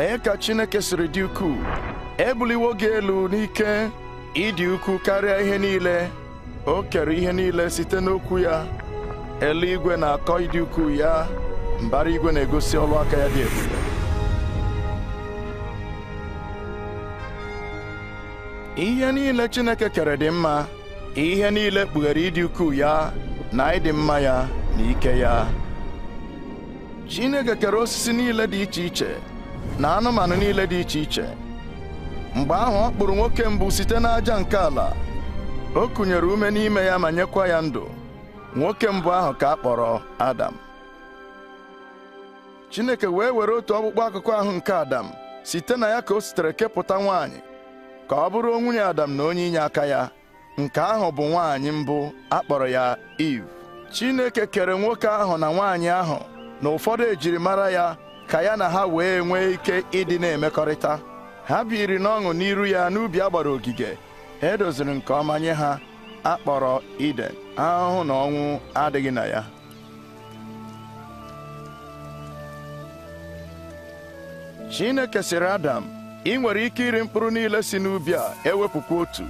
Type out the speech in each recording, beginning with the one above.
lee ka Chineke siri dị ukwuu ebuliwo gị elu n'ike ịdị ukwuu karịa ihe niile o kere ihe niile site n'okwu ya eluigwe na-akọ ịdị ukwuu ya mbara igwe na-egosi ọlụ aka ya dị ebube ihe niile Chineke kere dị mma ihe niile kpughere ịdị ukwuu ya na ịdị mma ya na ike ya Chineke kere osisi niile dị iche iche na anụmanụ niile dị iche iche mgbe ahụ ọ kpụrụ nwoke mbụ site n'aja nke ala o kụnyere ume n'ime ya ma nyekwa ya ndụ nwoke mbụ ahụ ka a kpọrọ Adam Chineke wee were otu ọkpụkpọ akụkọ ahụ nke Adam site na ya ka o sitere kepụta nwaanyị ka ọ bụrụ nwunye Adam na onye inye aka ya nke ahụ bụ nwaanyị mbụ a kpọrọ ya Eve Chineke kere nwoke ahụ na nwaanyị ahụ na ụfọdụ ejirimara ya ka ya na ha wee nwee ike ịdị na-emekọrịta ha biri n'ọṅụ n'iru ya n'ubi a gbara ogige edoziri nke ọma nye ha akpọrọ Iden ahụhụ na ọnwụ adịghị na ya Chineke siri Adam ị nwere ike iri mkpụrụ niile si n'ubi a ewepụkwa otu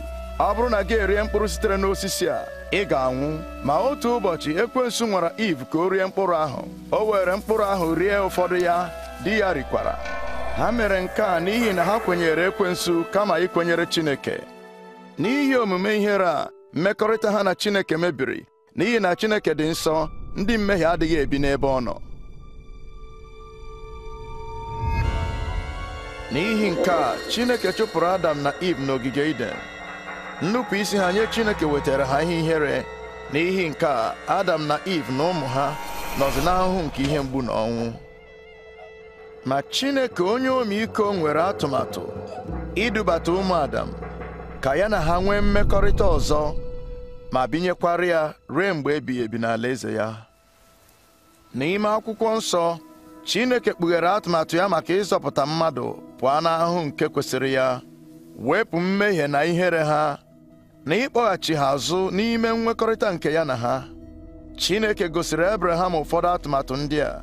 ọ bụrụ na gị erie mkpụrụ sitere n'osisi a ị ga-anwụ ma otu ụbọchị ekwensu nwara Iv ka o rie mkpụrụ ahụ o were mkpụrụ ahụ rie ụfọdụ ya di ya rikwara ha mere nke a n'ihi na ha kwenyere ekwensu kama ikwenyere Chineke n'ihi omume ihere a mmekọrịta ha na Chineke mebiri n'ihi na Chineke dị nsọ ndị mmehie adịghị ebi n'ebe ọ nọ n'ihi nke a Chineke chụpụrụ Adam na Iv n'ogige Iden nnupụ isi ha nye chineke wetara ha ihe ihere n'ihi nke a adam na iv na ụmụ ha nọzi n'ahụhụ nke ihe mgbu na ọnwụ ma chineke onye iko nwere atụmatụ idubata ụmụ adam ka ya na ha nwee mmekọrịta ọzọ ma binyekwara ya ruo mgbe ebighị ebi n'ala eze ya n'ime akwụkwọ nsọ chineke kpughere atụmatụ ya maka ịzọpụta mmadụ pụọ n'ahụ nke kwesịrị ya wepụ mmehie na ihere ha na ịkpọghachi ha azụ n'ime nwekọrịta nke ya na ha Chineke gosiri Abraham ụfọdụ atụmatụ ndị a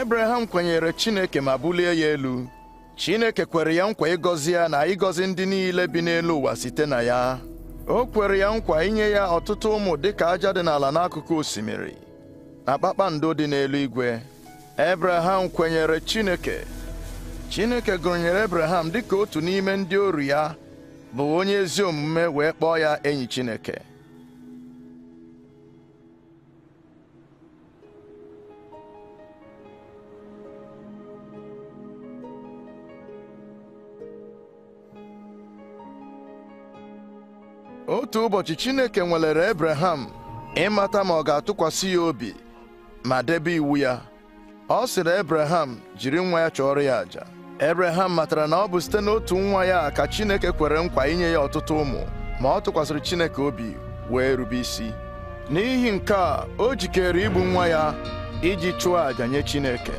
Abraham kwenyere Chineke ma bulie ya elu Chineke kwere ya nkwa ịgọzi ya na ịgọzi ndị niile bi n'elu ụwa site na ya o kwere ya nkwa inye ya ọtụtụ ụmụ dịka aja dị n'ala n'akụkụ osimiri na kpakpando dị n'eluigwe Ebraham kwenyere Chineke Chineke gụnyere Ebraham dịka otu n'ime ndị oru ya bụ onye ezi omume wee kpọọ ya enyi Chineke otu ụbọchị Chineke nwelere Ebreham ịmata ma ọ ga-atụkwasị ya obi ma debe iwu ya ọ sịrị Ebreham jiri nwa ya chọọrọ ya àjà Ebreham matara na ọ bụ site n'otu nwa ya ka Chineke kwere nkwa inye ya ọtụtụ ụmụ ma ọ tụkwasịrị Chineke obi wee rube isi n'ihi nke a o jikere igbu nwa ya iji chụọ àjà nye Chineke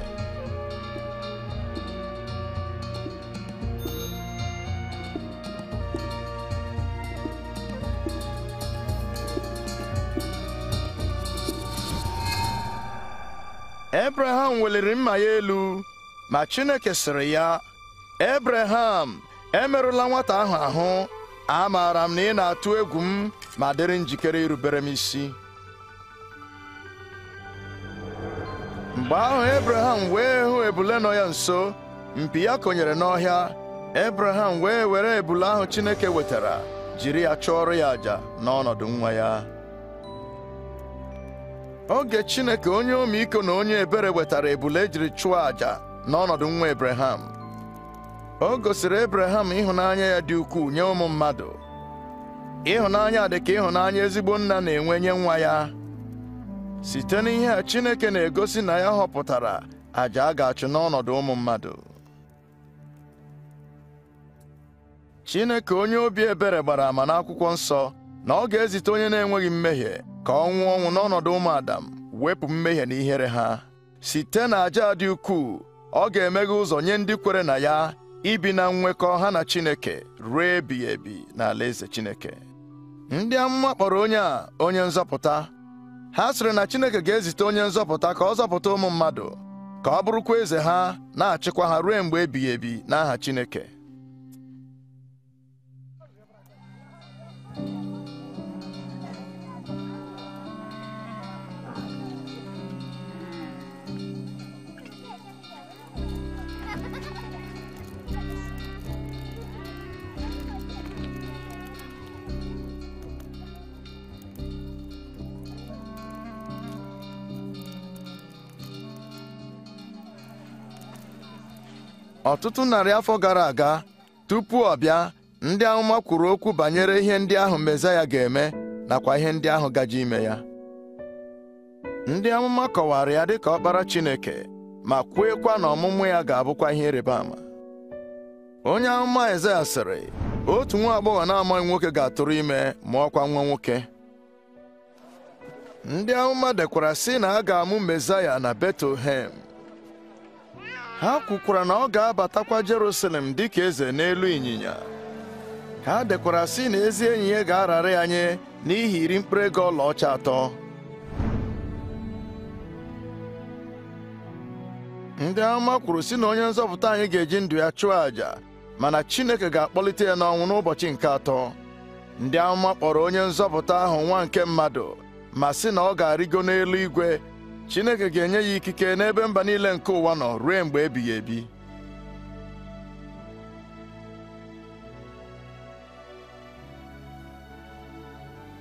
Ebreham weliri mma ya elu ma Chineke sịrị ya Ebreham, emerụla nwata ahụ ahụ amaara m na ị na-atụ egwu m ma dịrị njikere irubere m isi mgbe ahụ Ebreham wee hụ ebule nọ ya nso mpi ya konyere n'ọhịa Ebreham wee were ebule ahụ Chineke wetara jiri ya chụọrọ ya àjà n'ọnọdụ nwa ya oge Chineke onye iko na onye ebere wetara ebule ejiri chụọ àjà n'ọnọdụ nwa Ebreham o gosiri Ebreham ịhụnanya ya dị ukwuu nye ụmụ mmadụ ịhụnanya dị ka ịhụnanya ezigbo nna na-enwe nye nwa ya site n'ihe a Chineke na-egosi na ya họpụtara àjà a ga-achụ n'ọnọdụ ụmụ mmadụ Chineke onye obi ebere gbara ama n'akwụkwọ nsọ na ọ ga-ezite onye na-enweghị mmehie ka ọ nwụọ ọnwụ n'ọnọdụ ụmụ Adam wepụ mmehie na ihere ha site na aja dị ukwuu ọ ga-emeghe ụzọ nye ndị kwere na ya ibi na nnwekọ ha na Chineke ruo ebighị ebi ala eze Chineke ndị amụma kpọrọ onye a onye nzọpụta ha sịrị na Chineke ga-ezite onye nzọpụta ka ọ zọpụta ụmụ mmadụ ka ọ bụrụkwa eze ha na-achịkwa ha ruo mgbe ebighị ebi n'aha Chineke ọtụtụ narị afọ gara aga tupu ọ bịa ndị amụma kwuru okwu banyere ihe ndị ahụ mezaya ga-eme nakwa ihe ndị ahụ gaji ime ya ndị amụma kọwara ya dịka ọkpara Chineke ma kweekwa na ọmụmụ ya ga-abụkwa ihe ịrịba ama onye amụma Aịzaya sịrị otu nwa agbọghọ na-amaghị nwoke ga-atụrụ ime mụọkwa nwa nwoke ndị amụma dekwara si na a ga-amụ mezaya na Betlehem ha kwukwara na ọ ga-abatakwa Jerusalem dị ka eze n'elu ịnyịnya ha dekwara sị na ezi enyi ya ga-arara ya n'ihi iri mkpụrụ ego ọlaọcha atọ ndị ama kwuru si na onye nzọpụta anyị ga-eji ndụ ya chụọ àjà mana Chineke ga-akpọlite ya n'ọnwụ n'ụbọchị nke atọ ndị amụma kpọrọ onye nzọpụta ahụ nwa nke mmadụ ma sị na ọ ga-arịgo n'elu igwe Chineke ga-enye ya ikike n'ebe mba niile nke ụwa nọ ruo mgbe ebighị ebi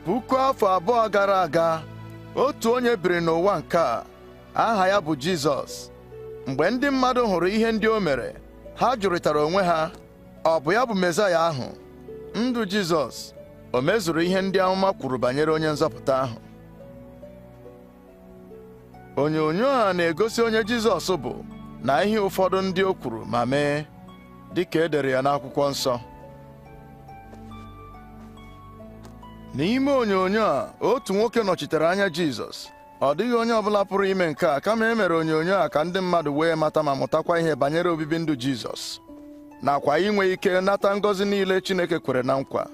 puku afọ abụọ gara aga otu onye biri n'ụwa nke a aha ya bụ Jizọs mgbe ndị mmadụ hụrụ ihe ndị o mere ha jụrịtara onwe ha ọ bụ ya bụ Mesaya ahụ ndụ Jizọs o mezuru ihe ndị amụma kwuru banyere onye nzọpụta ahụ onyonyo a na-egosi onye Jizọs bụ na ihe ụfọdụ ndị o kwuru ma mee dị ka e dere ya n'akwụkwọ nsọ n'ime onyonyo a otu nwoke nọchitere anya Jizọs ọ dịghị onye ọbụla pụrụ ime nke a kama e mere onyonyo a ka ndị mmadụ wee mata ma mụtakwa ihe banyere obibi ndụ Jizọs nakwa inwe ike nata ngọzi niile Chineke kwere na nkwa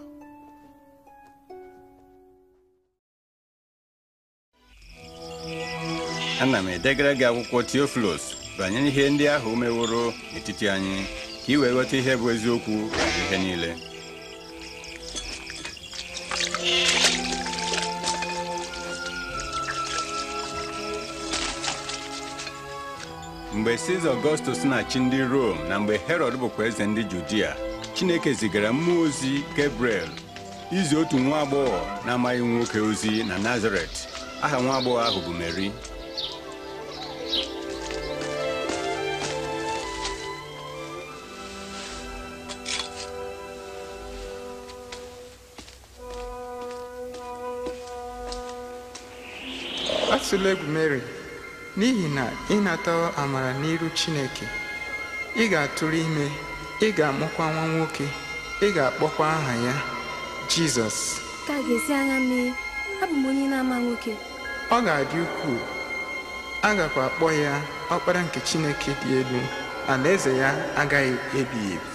ana m edegara gị akwụkwọ Theophilus banyere ihe ndị ahụ meworo n'etiti anyị ka ị wee ghọta ihe bụ eziokwu ihe niile mgbe Siza Ọgọstus na-achị ndị Rom na mgbe herod bụkwa eze ndị Judia Chineke zigara mmụọ ozi Gabriel izi otu nwa agbọghọ na-amaghị nwoke ozi na Nazaret aha nwa agbọghọ ahụ bụ Meri atụla egwu mary n'ihi na ịnata amara n'iru chineke ị ga-atụrụ ime ị ga-amụkwa nwa nwoke ị ga-akpọkwa aha ya jizọs ga-esi anya mee abụ m nwoke ọ ga-adị ukwuu a akpọ ya ọkpara nke chineke dị elu alaeze ya agaghị ebighị ebi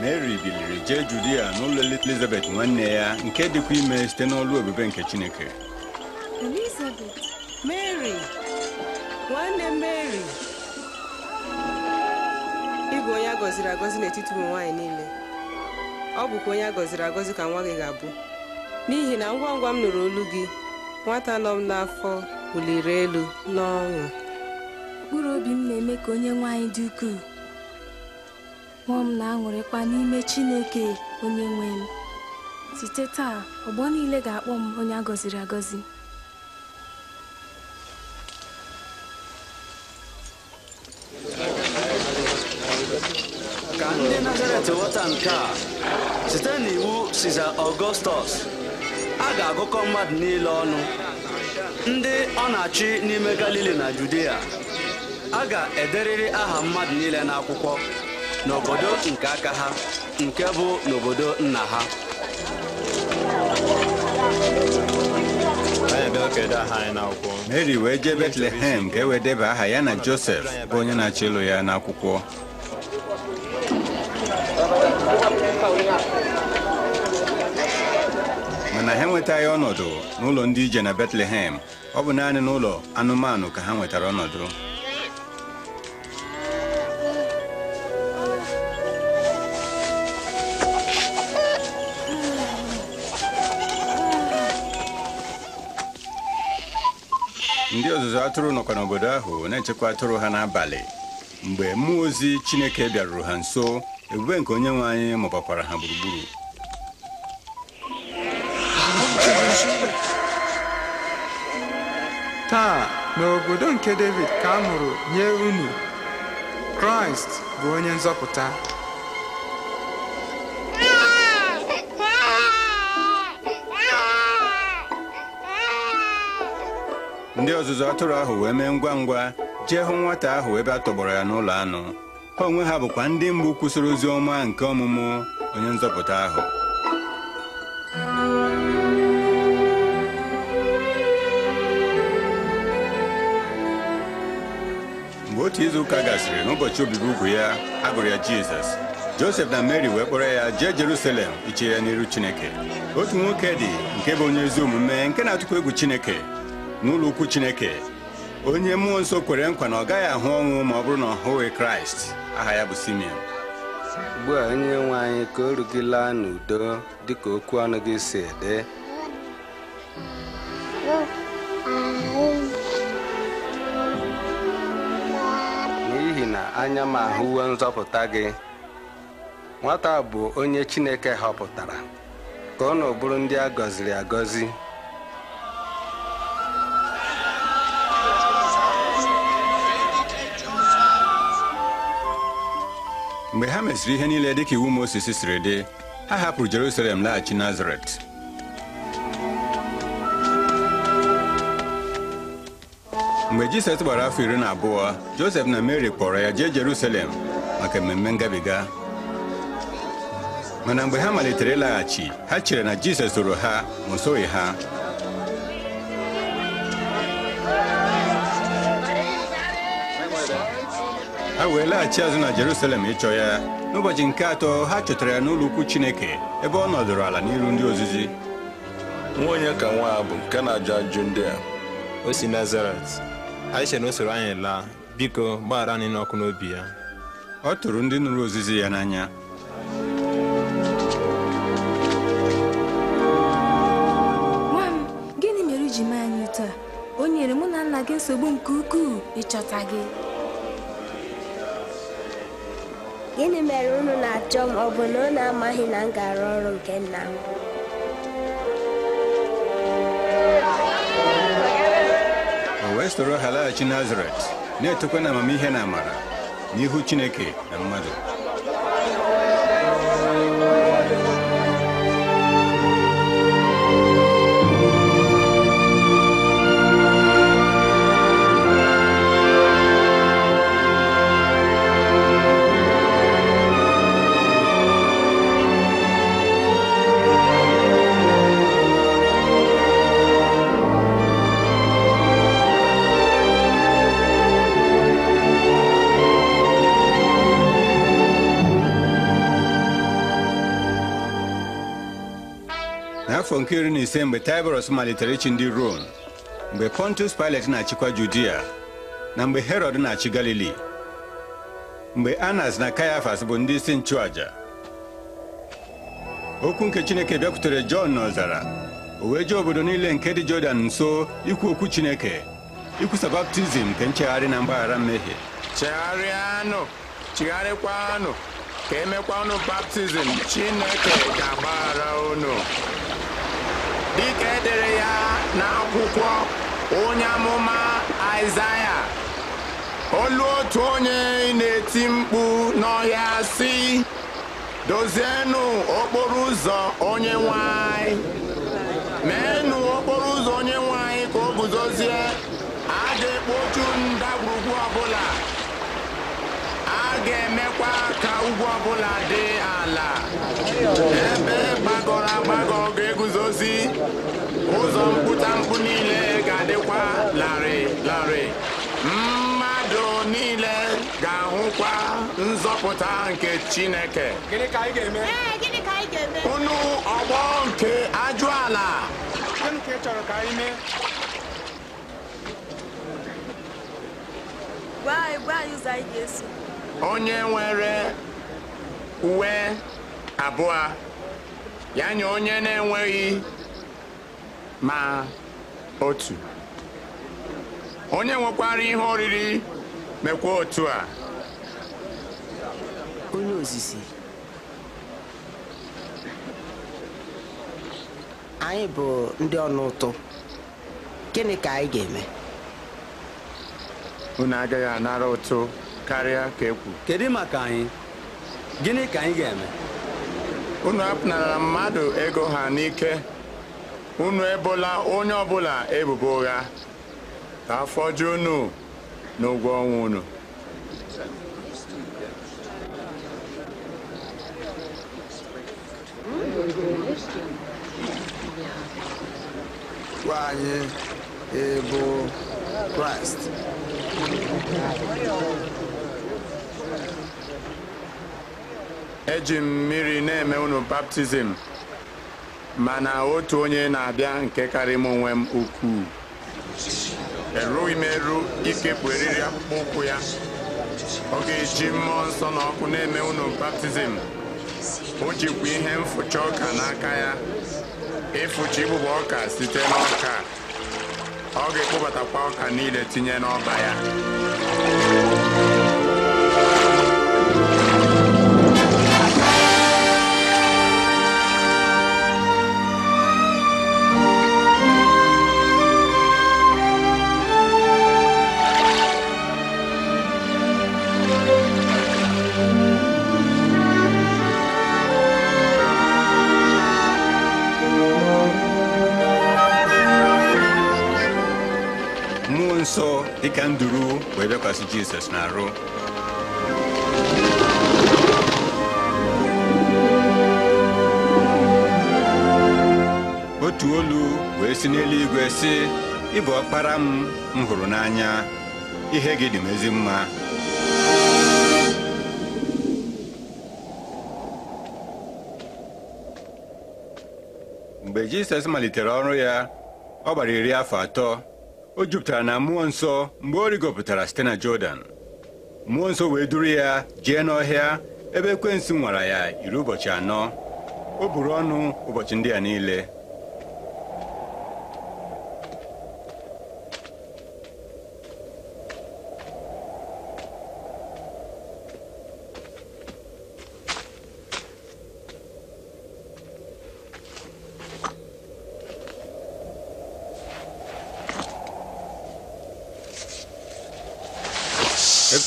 mary biliri jee judia n'ụlọ elizabeth nwanne ya nke dịkwa ime site n'ọlụ ebube nke chineke elizabeth mary ịbụ onye a gọziri agọzi n'etiti ụmụ nwaanyị niile ọ bụkwa onye a gọziri agọzi ka nwa gị ga-abụ n'ihi na ngwa ngwa m nụrụ olu gị nwata nọ m n'afọ wuliri elu n'ọṅụ mkpụrụ obi m na-eme ka onye nwaanyị dị ukwuu Mmụọ m na-aṅụrịkwa n'ime Chineke onye nwe m. Site taa, ọgbọ niile ga-akpọ m onye a gọziri agọzi. Ka ndị Nazaret ghọta nke a, site n'iwu Siza Ọgọstọs, a ga-agụkọ mmadụ niile ọnụ ndị ọ na-achị n'ime Galili na Judea a ga-ederịrị aha mmadụ niile n'akwụkwọ n'obodo nke aka ha nke bụ n'obodo nna ha mary wee jee betlehem ka e wee aha ya na josef bụ onye na-achọ ịlụ ya n'akwụkwọ mana ha enwetaghị ọnọdụ n'ụlọ ndị ije na betlehem ọ bụ naanị n'ụlọ anụmanụ ka ha nwetara ọnọdụ ndị ọzụzụ atụrụ nọkwa n'obodo ahụ na-echekwa atụrụ ha n'abalị mgbe mmụọ ozi Chineke bịaruru ha nso ebube nke onye nwe anyị mụbakwara ha gburugburu taa n'obodo nke David ka a mụrụ nye unu Kraịst bụ onye nzọpụta ndị ọzụzụ atụrụ ahụ wee mee ngwa ngwa jee hụ nwata ahụ ebe a tọgbọrọ ya n'ụlọ anụ ha onwe ha bụkwa ndị mbụ kwụsịrị ozi ọma nke ọmụmụ onye nzọpụta ahụ mgbe otu izu ụka gasịrị n'ụbọchị obibi ugwu ya agụrụ ya jizọs josef na mary wee kpọrọ ya jee jerusalem iche ya n'iru chineke otu nwoke dị nke bụ onye ezi omume nke na-atụkwa egwu chineke n'ụlọ ukwu chineke onye mmụọ nsọ kwere nkwa na ọ gaghị ahụ ọnwụ ma ọ bụrụ na ọ hụghị kraịst aha ya bụ simeon ugbu a onye nwe anyị ka o rugila n'udo dịka okwu ọnụ gị si ede n'ihi na anya m ahụwo nzọpụta gị nwata bụ onye chineke họpụtara ka ọ na bụrụ ndị a gọziri agọzi mgbe ha mesịrị ihe niile dịka iwu Mozis siri dị ha hapụrụ Jerusalem laghachi Nazaret mgbe Jisọs gbara afọ iri na abụọ Josef na Mary kpọrọ ya jee Jerusalem maka mmemme ngabiga mana mgbe ha malitere ịlaghachi ha chere na Jisọs soro ha ma o soghị ha ha wee laghachi azụ na Jerusalem ịchọ e ya n'ụbọchị nke atọ ha chọtara ya n'ụlọ ukwu Chineke ebe ọ nọdụrụ ala n'iru ndị ozizi nwa onye ka nwa a bụ nke na-ajụ ajụ ndị a o si Nazaret anyị na o anyị laa biko gbaghara anyị n'ọkụ n'obi ya ọ tụrụ ndị nụrụ ozizi ya n'anya nwa m gịnị mere iji mee anyị taa o nyere mụ na nna gị nsogbu nke ukwuu ịchọta gị gịnị mere unu na-achọ m ọ bụ na unu amaghị na m ga ọrụ nke nna m o wee soro ha laghachi nazaret na-etokwa na amamihe na amara n'ihu chineke na mmadụ afọ nke iri na ise mgbe Taịbọrọs malitere ịchị ndị Rom mgbe Pontus Pilet na-achịkwa Judia na mgbe Herọd na-achị Galili mgbe Anas na Kayafas bụ ndị isi nchụaja okwu nke Chineke bịakwutere Jọn n'ọzara o wee jee obodo niile nke dị Jọdan nso ikwu okwu Chineke ikwusa baptizim nke nchegharị na mgbaghara mmehie chegharịanụ chigharịkwanụ ka emekwanụ baptizim Chineke ga-agbaghara unu dịka edere ya n'akwụkwọ onye amụma Aịzaya olu otu onye na-eti mkpu n'ọhịa si dozienụ okporo ụzọ onye nwanyị meenụ okporo ụzọ onye nwanyị ka o guzozie a ga-ekpochu ndagwurugwu ọbụla a ga-emekwa ka ugwu ọbụla dị ala ebe gbagọrọ agbagọ na-eguzozi ụzọ mkpụtamkpụ niile ga-adịkwa larịị larịị mmadụ niile ga-ahụkwa nzọpụta nke Chineke gịnị ka anyị ga-eme gịnị ka ga-eme. unu ọgbọ nke ajụala gịnị ka ị chọrọ ka anyị mee gwa anyị gwa anyị ụzọ onye nwere uwe abụọ ya nye onye na-enweghị ma otu onye nwekwara ihe oriri mekwa otu a onye ozizi anyị bụ ndị ọnụ ụtụ gịnị ka anyị ga-eme unu agaghị anara ụtụ karịa ka ekwu kedu maka anyị gịnị ka anyị ga-eme unu apụnara mmadụ ego ha n'ike unu ebola onye ọbụla ebubo ụgha ka afọ ju unu n'ụgwọ ọnwa unu gwa anyị Kraịst eji m mmiri na-eme unu baptizim mana otu onye na-abịa nke karị m onwe m ukwuu erughị m eru ikepụ eriri akpụkpọ ụkwụ ya ọ ga-eji mmụọ nsọ na ọkụ na-eme unu baptizim o jikwa ihe mfụcha ọka n'aka ya ịfụcha igbụba ọka site n'ọka ọ ga-ekpụbatakwa ọka niile tinye n'ọba ya dịka nduru wee bịakwasị jizọs na-arụ. otu olu wee si n'eluigwe sị ị bụ ọkpara m m hụrụ n'anya ihe gị dị m ezi mma mgbe jizọs malitere ọrụ ya ọ gbara iri afọ atọ o jupụtara na mmụọ nsọ mgbe ọ rigopụtara site na Jọdan mmụọ nsọ wee duru ya jee n'ọhịa ebe ekwensu nwara ya iri ụbọchị anọ o buru ọnụ ụbọchị ndị a niile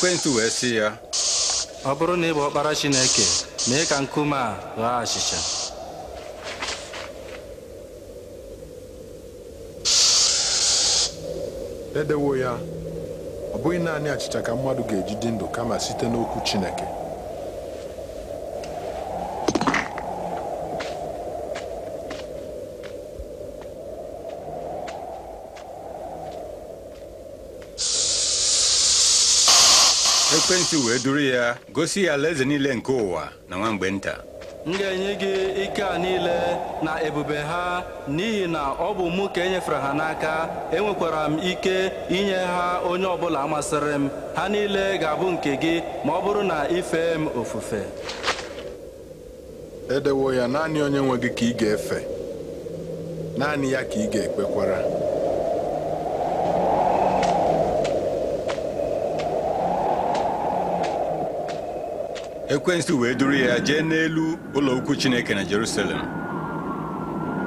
ekwentị wee sị ya ọ bụrụ na ị bụ ọkpara Chineke mee ka nkume a ghaa achịcha edewo ya ọ bụghị naanị achịcha ka mmadụ ga-eji dị ndụ kama site n'okwu Chineke ekwensu wee duru ya gosi ya alaeze niile nke ụwa na nwa mgbe nta m ga-enye gị ike a niile na ebube ha n'ihi na ọ bụ mụ ka enyefere ha n'aka enwekwara m ike inye ha onye ọbụla masịrị m ha niile ga-abụ nke gị ma ọ bụrụ na ife m ofufe edewo ya naanị onye nwe gị ka ị ga-efe naanị ya ka ị ga-ekpekwara ekwensu wee duru ya jee n'elu ụlọ chineke na jerusalem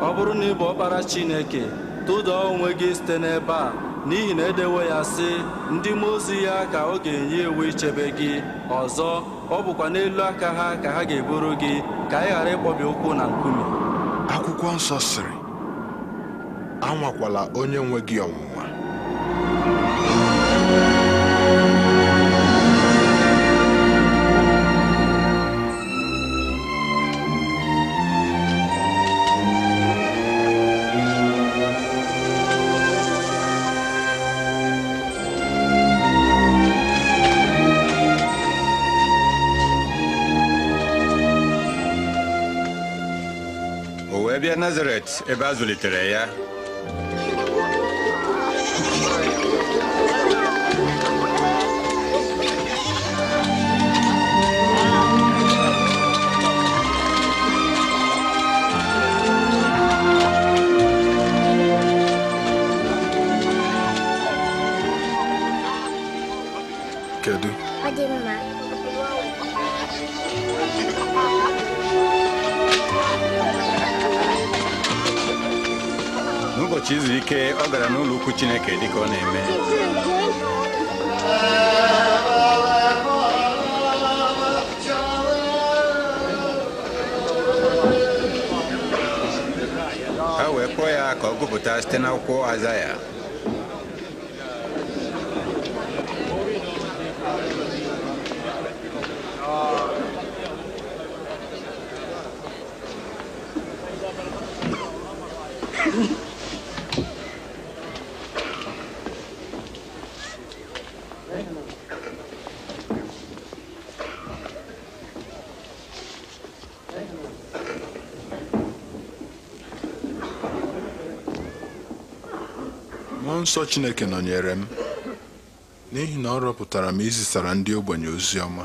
ọ bụrụ na ị ọkpara chineke tụda onwe gị site n'ebe a n'ihi na edewo ya sị ndị mmụọ ozi ya ka ọ ga-enye ichebe gị ọzọ ọ bụkwa n'elu aka ha ka ha ga-eburu gị ka ị ghara ịkpọbi ụkwụ na nkume akwụkwọ nsọ sịrị anwakwala onye nwe gị ọnwụnwa Ewet, ebe a zụlitere ya ụbọchị izu ike ọ gara n'ụlọ ukwu Chineke ka ọ na-eme ha wee kpọọ ya ka ọ gụpụta site n'akwụkwọ ya. nsọ Chineke nọnyere m n'ihi na ọ rọpụtara m izisara ndị ogbenye ozi ọma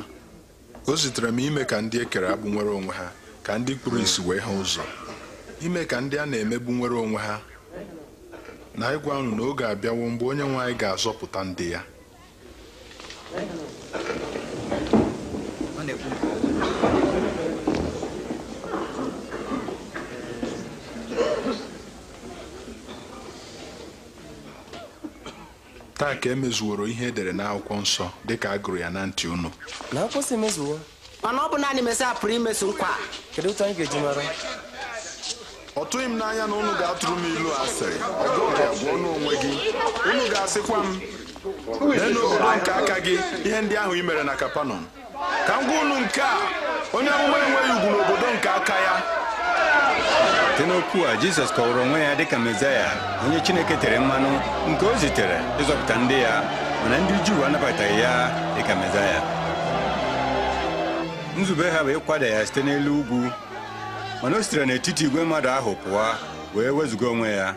o zitere m ime ka ndị e kere agbụ nwere onwe ha ka ndị kpụrụ isi wee ha ụzọ ime ka ndị a na-emegbu nwere onwe ha na ịgwa ahụ na oge abịawo mgbe onye nwe anyị ga-azọpụta ndị ya ka e emezuworo ihe edere n'akwụkwọ nsọ ka a gụrụ ya na ntị unu n'akwụkwọ si emezuwo mana ọ bụ naanị Mesaya pụrụ imezu nkwa kedu otu anyị ga-eji mara ọ tụghị m n'anya na unu ga-atụrụ m ilu asịrị ọ bụghị ọnụ onwe gị unu ga-asịkwa m lee n'obodo nke aka gị ihe ndị ahụ i mere na Kapanọm ka m gwa unu nke a onye amụma enweghị ugwu n'obodo nke aka ya site n'okwu a jizọs kọwara onwe ya dịka mezaya onye chineke tere mmanụ nke o zitere ịzọpụta ndị ya mana ndị juu anabataghị ya dịka mezaya nzube ha bụ ịkwada ya site n'elu ugwu mana o sitere n'etiti igwe mmadụ ahụ pụọ wee wezụga onwe ya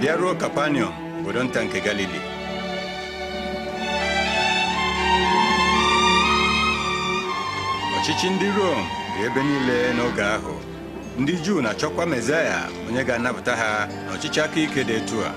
bịaruo kapanium obodo nta nke Galili Ọchịchị ndị Rom dị ebe niile n'oge ahụ ndị Juu na-achọkwa Mesaya onye ga-anapụta ha na ọchịchị aka ike dị etu a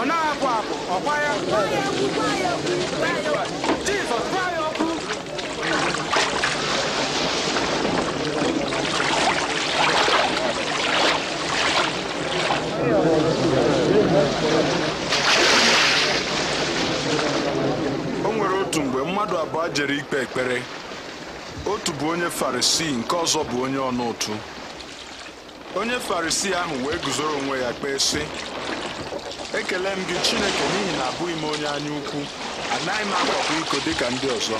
ọ na-abụ abụ ọkwa ya ya o nwere otu mgbe mmadụ abụọ jere ikpe ekpere otu bụ onye farisii nke ọzọ bụ onye ọnụ ụtụ onye farisii ahụ wee guzoro onwe ya kpee sị ekele m gị Chineke n'ihi na abụghị m onye anya ukwu anaghị m akwapụ iko dịka ndị ọzọ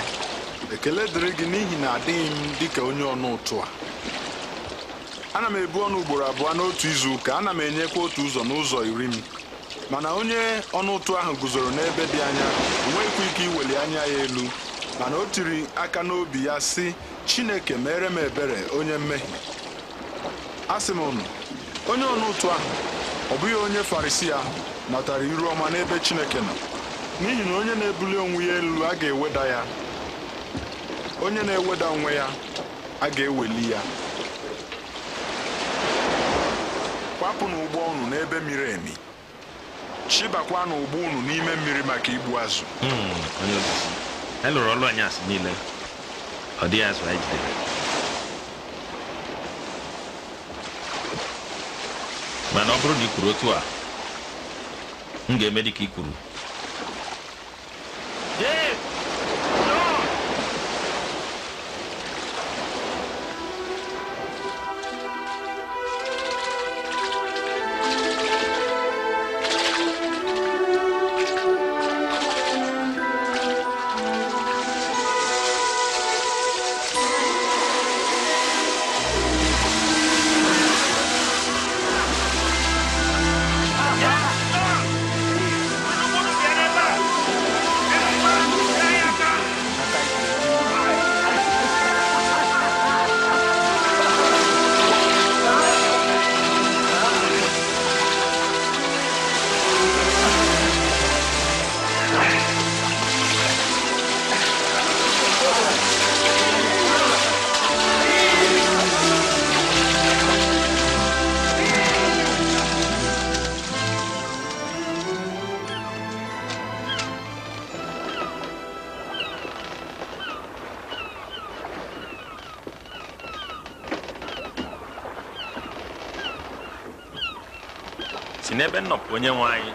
ekele dịrị gị n'ihi na adịghị m dịka onye ọnụ ụtụ a ana m ebu ọnụ ugboro abụọ n'otu izu ụka ana m enyekwa otu ụzọ n'ụzọ iri m mana onye ọnụ ụtụ ahụ guzoro n'ebe dị anya enweghịkwa ike iweli anya ya elu mana o tiri aka n'obi ya sị Chineke mere m ebere onye mmehie asị m unu onye ọnụ ụtụ ahụ ọ bụghị onye farisi ahụ natara iru ọma n'ebe Chineke nọ n'ihi na onye na-ebuli onwe ya elu a ga-eweda ya onye na-eweda onwe ya a ga-eweli ya kwapụ n'ụgbọ unu n'ebe miri emi chịbakwa n'ụgbọ unu n'ime mmiri maka igbu azụ hmm, elụrụ e ọlụ anyị asị niile ọ dịghị azụ anyị jidere mana ọ bụrụ na ị kwuru otu a m ga-eme ka i kwuru nọpụ onye nwe anyị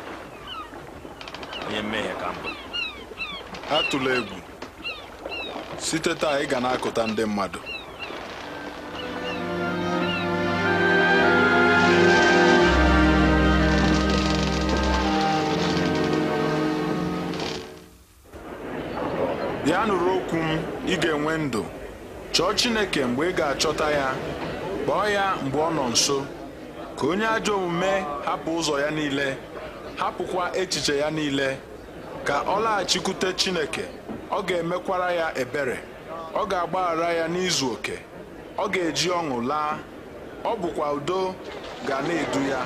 onye mmehie ka mbụ atụla egwu site taa ị ga na-akụta ndị mmadụ bịa nụrụ okwu m ị ga-enwe ndụ chọọ Chineke mgbe ị ga-achọta ya kpọọ ya mgbe ọ nọ nso ka onye ajọ omume hapụ ụzọ ya niile hapụkwa echiche ya niile ka ọ laghachikwute Chineke ọ ga-emekwara ya ebere ọ ga-agbaghara ya n'izu oke ọ ga-eji ọṅụ laa ọ bụkwa udo ga na-edu ya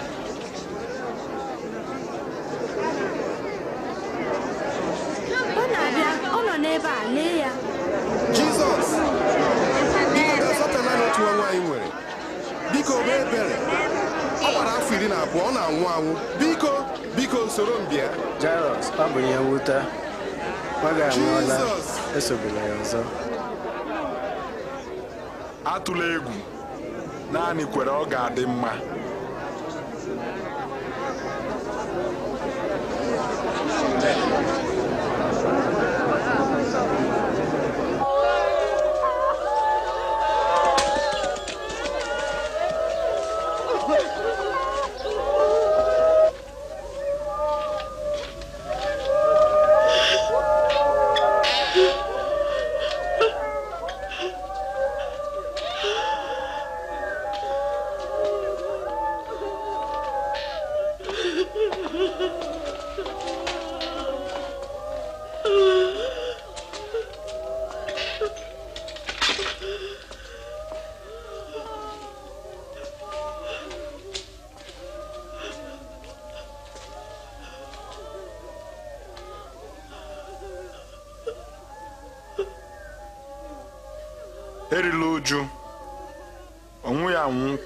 ọ na-abịa ọ nọ n'ebe a lee ya Jizọs biko nwa anyị nwere biko mee ebere ọ gbara afọ iri na abụọ ọ na-anwụ anwụ biko biko soro m bịa ọ bụ ihe nwute nwaga anwụọla esogbula ya ọzọ atụla egwu naanị kwere ọ ga-adị mma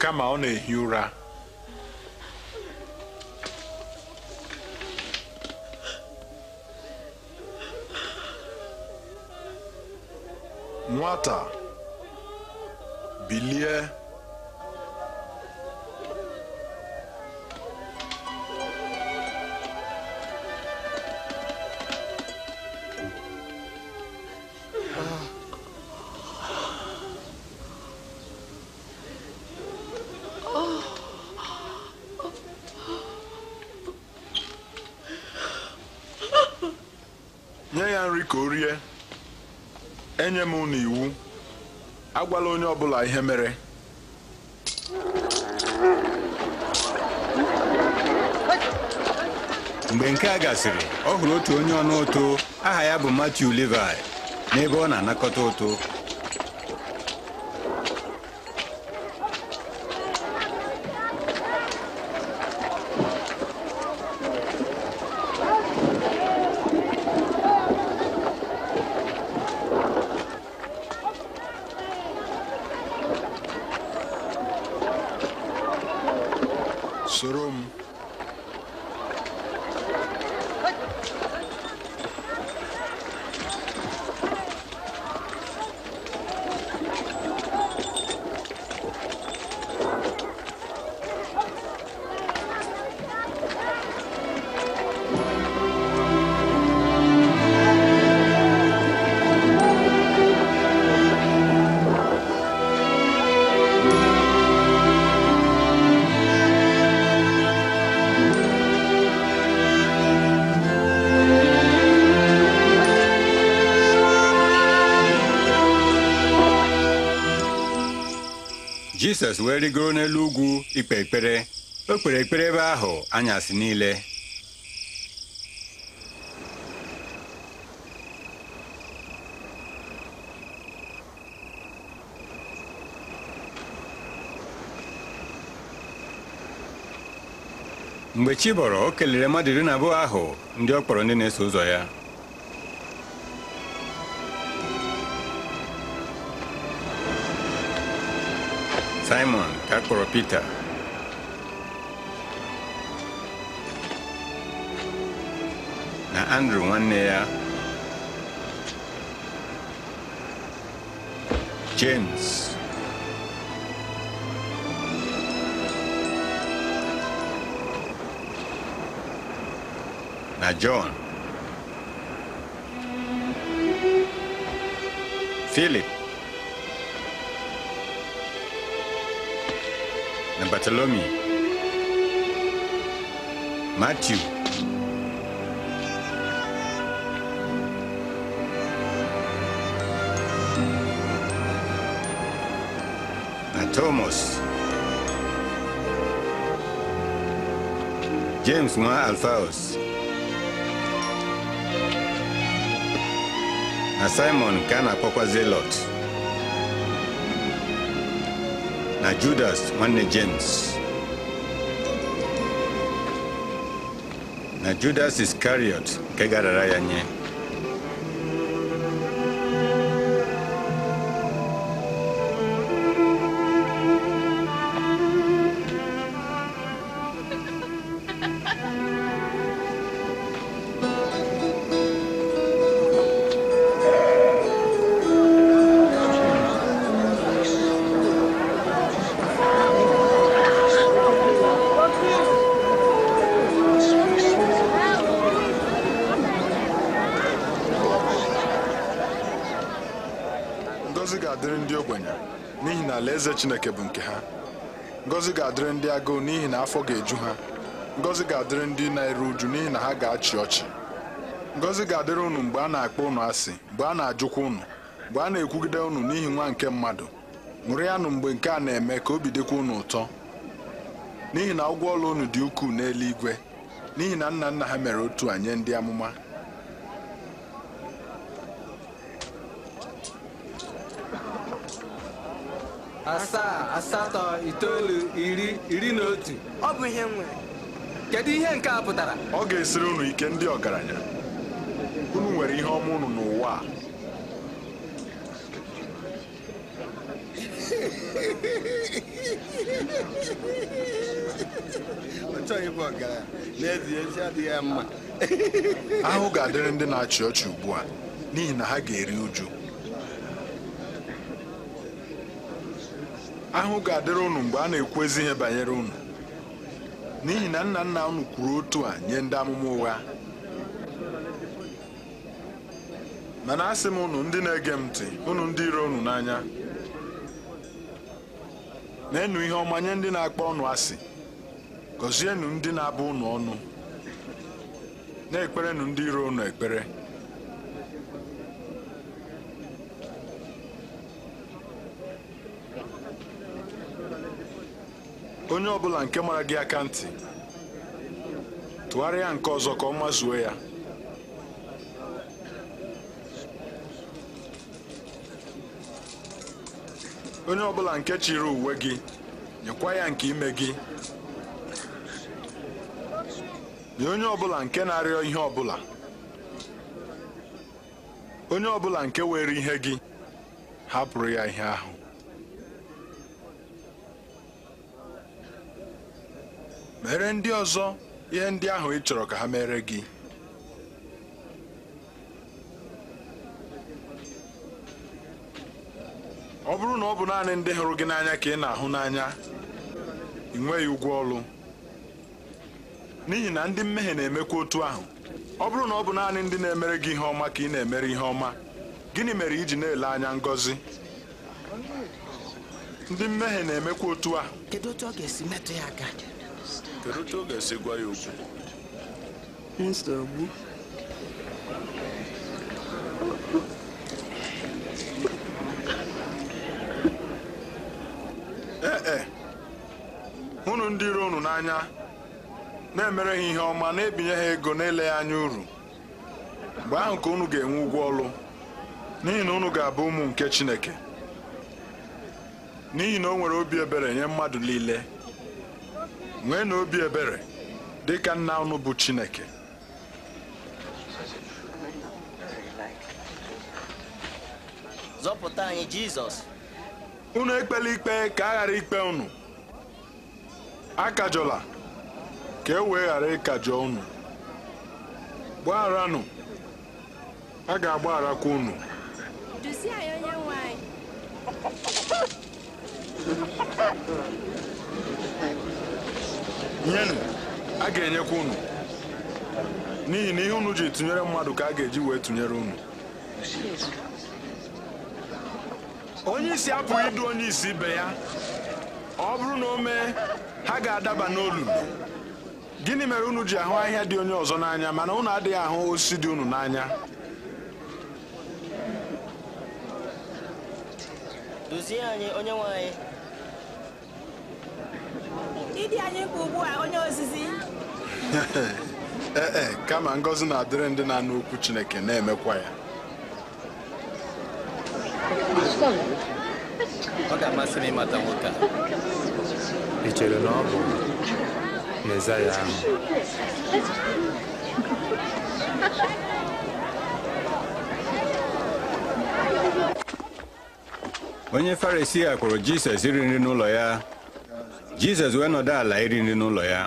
kama ọ na-ehi ụra nwata bilie agwala onye ọ bụla ihe mere mgbe nke a gasịrị ọ hụrụ otu onye ọnụ ụtụ aha ya bụ Matthew Levi n'ebe ọ na-anakọta ụtụ Jizọs wee rigoro n'elu ugwu ikpe ekpere o kpere ekpere ebe ahụ anyasị niile mgbe chi bọrọ o kelere mmadụ iri na abụọ ahụ ndị ọ kpọrọ ndị na-eso ụzọ ya Simon Kakoropita. na Andrew one ya James na John Philip Bartholomew, Matthew, and Thomas, James 1 Alphaeus, and Simon Cana Pokwa Zelot. na Judas wannan James na Judas Iscariot kai gara rayanye. Eze chineke bụ nke ha Ngozi ga-adịrị ndị agụụ n'ihi na afọ ga-eju ha Ngozi ga-adịrị ndị na-eru uju n'ihi na ha ga-achị ọchị Ngozi ga-adịrị unu mgbe a na-akpọ ụnụ asị mgbe a na-ajụkwa ụnụ, mgbe a na-ekwugide ụnụ n'ihi nwa nke mmadụ ṅụrịanụ mgbe nke a na-eme ka obi dịkwa ụnụ ụtọ n'ihi na ụgwọ ọla ụnụ dị ukwuu n'eluigwe n'ihi na nna nna ha mere otu a nye ndị amụma asaa asatọ itoolu iri iri na otu ọ bụ ihe nwere kedu ihe nke a pụtara ọ ga-esiri unu ike ndị ọgaranya unu nwere ihe ọma unu n'ụwa a ahụ ga-adịrị ndị na-achị ọchị ugbu a n'ihi na ha ga-eri uju ahụ ga-adịrị ụnụ mgbe a na-ekwu ezi ihe banyere ụnụ n'ihi na nna nna unu kwuru otu a nye ndị amụma ụgha mana asị m ụnụ ndị na-ege m ntị ụnụ ndị iro ụnụ n'anya na-enu ihe ọma nye ndị na-akpọ ọnụ asị gọzienụ ndị na-abụ ụnụ ọnụ na-ekperenụ ndị iro ụnụ ekpere onye ọ bụla nke mara gị aka ntị tụgharịa nke ọzọ ka ọ mazuo ya onye ọbụla nke chiri uwe gị nyekwa ya nke ime gị nye onye ọbụla nke na-arịọ ihe ọbụla onye ọbụla nke were ihe gị hapụrụ ya ihe ahụ mere ndị ọzọ ihe ndị ahụ ị chọrọ ka ha mere gị ọ bụrụ na ọ bụ naanị ndị hụrụ gị n'anya ka ị na-ahụ n'anya ị nweghị ụgwọ ọrụ n'ihi na ndị mmehie na-emekwa otu ahụ ọ bụrụ na ọ bụ naanị ndị na-emere gị ihe ọma ka ị na-emere ihe ọma gịnị mere iji na-ele anya ngọzi ndị mmehie na-emekwa otu a. kedu otu ọ ga-esi metụ ya aka Kedu ga-esi gwa ya okwu? Ee e, e. ụnụ ndị iro unu n'anya na-emere ha ihe ọma na-ebinye ha ego na ya anya uru mgbe ahụ ka unu ga-enwe ụgwọ ọlụ n'ihi na unu ga-abụ ụmụ nke Chineke n'ihi na o nwere obi ebere nye mmadụ niile nwee na obi ebere dị ka nna ụnụ bụ Chineke zọpụta anyị Jizọs unu ekpela ikpe ka a ghara ikpe unu akajọla ka e wee ghara ịkajọ unu gbagharanụ a ga-agbagharakwa unu duzie onye nwanyị. nyenụ a ga-enyekwa unu n'ihi na ihe unu ji tụnyere mmadụ ka a ga-eji wee tụnyere unu onye isi apụghị idu onye isi ibe ya ọ bụrụ na o mee ha ga-adaba n'olulu gịnị mere unu ji ahụ ahịhịa dị onye ọzọ n'anya mana unu adịghị ahụ osisi dị unu n'anya ịdị anyị mkpa ugbu a onye ozizi ee eh, eh, kama ngọzi na-adịrị ndị na-anụ okwu Chineke na-emekwa ya ọ ga-amasị m ịmata nwoke a ị chere na ọ bụ Mezaya ahụ onye Farisi a kwụrụ Jizọs iri nri n'ụlọ ya Jizọs wee nọdụ ala iri nri n'ụlọ ya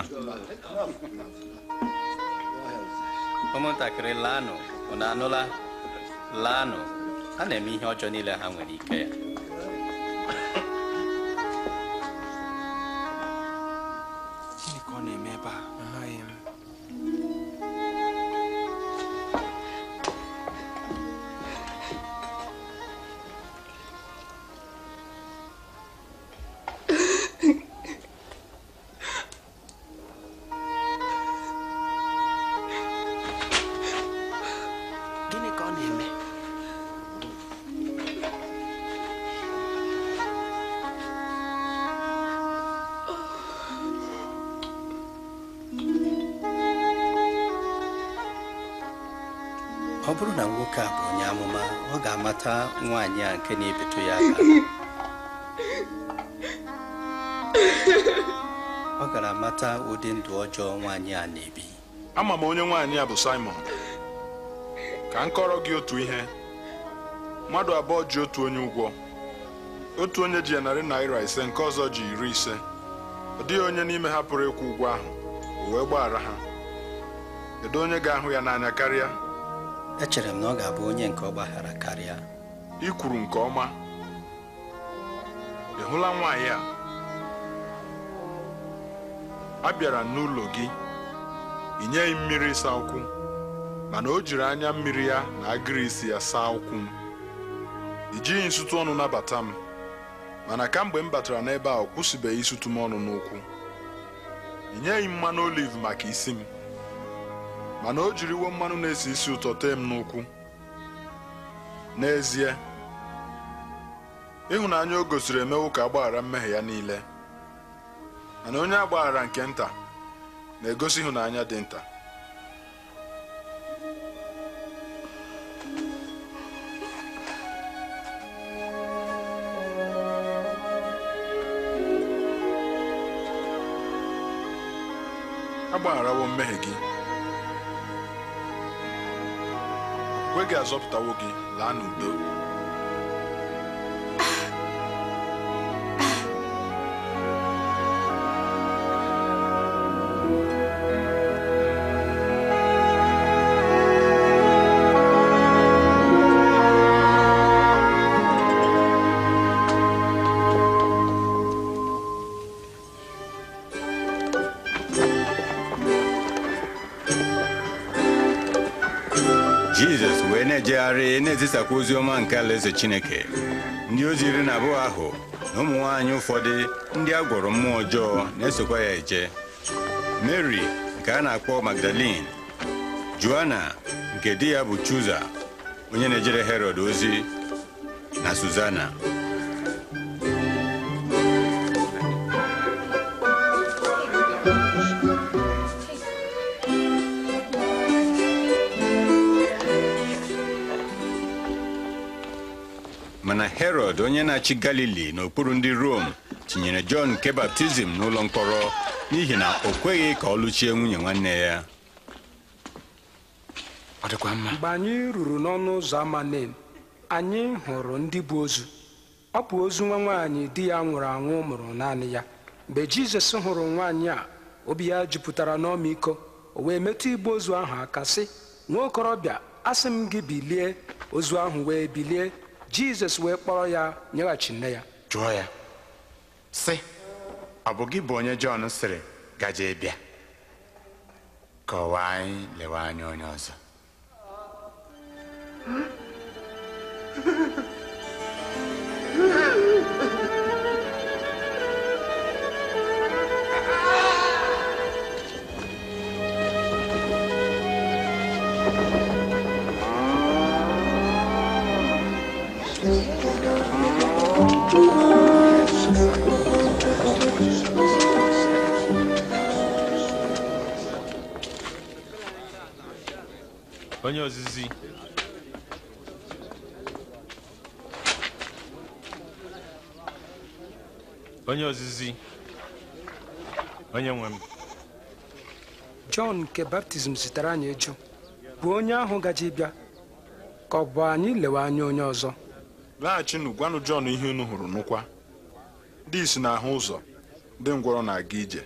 ụmụntakịrị laanụ na anụla laanụ a na-eme ihe ọjọọ niile ha nwere ike ya nwaanyị a nke na-ebetu ya aka ọ gara mata ụdị ndụ ọjọọ nwaanyị a na-ebi ama m onye nwaanyị a bụ Simon ka m kọrọ gị otu ihe mmadụ abụọ ji otu onye ụgwọ otu onye ji ya narị naira ise nke ọzọ ji iri ise ọ dịghị onye n'ime ha pụrụ ịkwụ ụgwọ ahụ o wee gbaghara ha kedu onye ga-ahụ ya n'anya karịa echere m na ọ ga-abụ onye nke ọ gbaghara karịa I kwuru nke ọma ị hụla nwaanyị a a bịara n'ụlọ gị ị nyeghị mmiri ịsa ụkwụ mana o jiri anya mmiri ya na agịrị isi ya saa ụkwụ m ị jighị nsụtụ ọnụ nabata m mana kamgbe m batara n'ebe a ọ kwụsịbeghị ịsụtụ m ọnụ n'ụkwụ ị mmanụ oliv maka isi m mana o jiri jiriwo mmanụ na-esi isi ụtọ tee m n'ụkwụ n'ezie ịhụnanya o gosiri emewo ka agbaghara mmehie ya niile mana onye agbaghara nke nta na-egosi ịhụnanya dị nta agbagharawo mmehie gị kwe gị azọpụtawo gị laa n'udo na-agagharị na-ezisakwa ozi ọma nke alaeze Chineke ndị ozi iri na abụọ ahụ na ụmụ nwaanyị ụfọdụ ndị a gwọrọ mmụọ ọjọọ na-esokwa ya eje Mary nke a na-akpọ Magdalene Joanna nke di ya bụ Chuza onye na-ejere Herod ozi na Suzana onye na-achị galili n'okpuru ndị rom tinyere jọn nke baptizim n'ụlọ mkpọrọ n'ihi na o kweghị ka ọ lụchie nwunye nwanne ya ọ dịkwa mma mgbe anyị ruru n'ọnụ ụzọ ama anyị hụrụ ndị bụ ozu ọ bụ ozu nwa nwaanyị di ya nwụrụ anwụ mụrụ naanị ya mgbe jizọs hụrụ nwaanyị a obi ya jupụtara n'ọmịiko o wee metụ igbe ozu ahụ aka sị nwa okorobịa asị m gị bilie ozu ahụ wee bilie jizọs wee kpọrọ ya nyeghachi nne ya jụọ ya sị ọ bụ gị bụ onye jọn sịrị gaje bịa kọwaa anyị lewe anya onye ọzọ onye ozizi onye ozizi onye nwe m Jọn nke baptizim zitere anyị eju bụ onye ahụ gaji bịa ka ọ bụ anyị lewe anya onye ọzọ laghachinụ gwanụ Jọn ihe unu hụrụ nụkwa dị isi n'ahụ ụzọ ndị ngwọrọ na-aga ije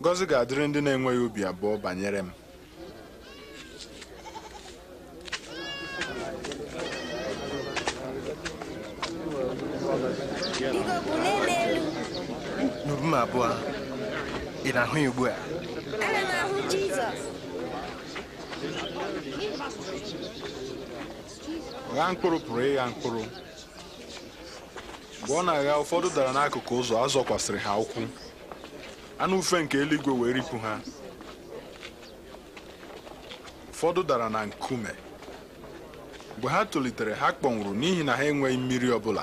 ngozi ga-adịrị ndị na-enweghị obi abụọ banyere m m abụọ ị na-ahụ ya ugbu a m ahụ Jizọs gha mkpụrụ pụrụ ịgha mkpụrụ mgbe ọ na-agha ụfọdụ dara n'akụkụ ụzọ a zọkwasịrị ha ụkwụ anụ ufe nke eluigwe wee ripụ ha ụfọdụ dara na nkume mgbe ha tolitere ha kpọnwụrụ n'ihi na ha enweghị mmiri ọ bụla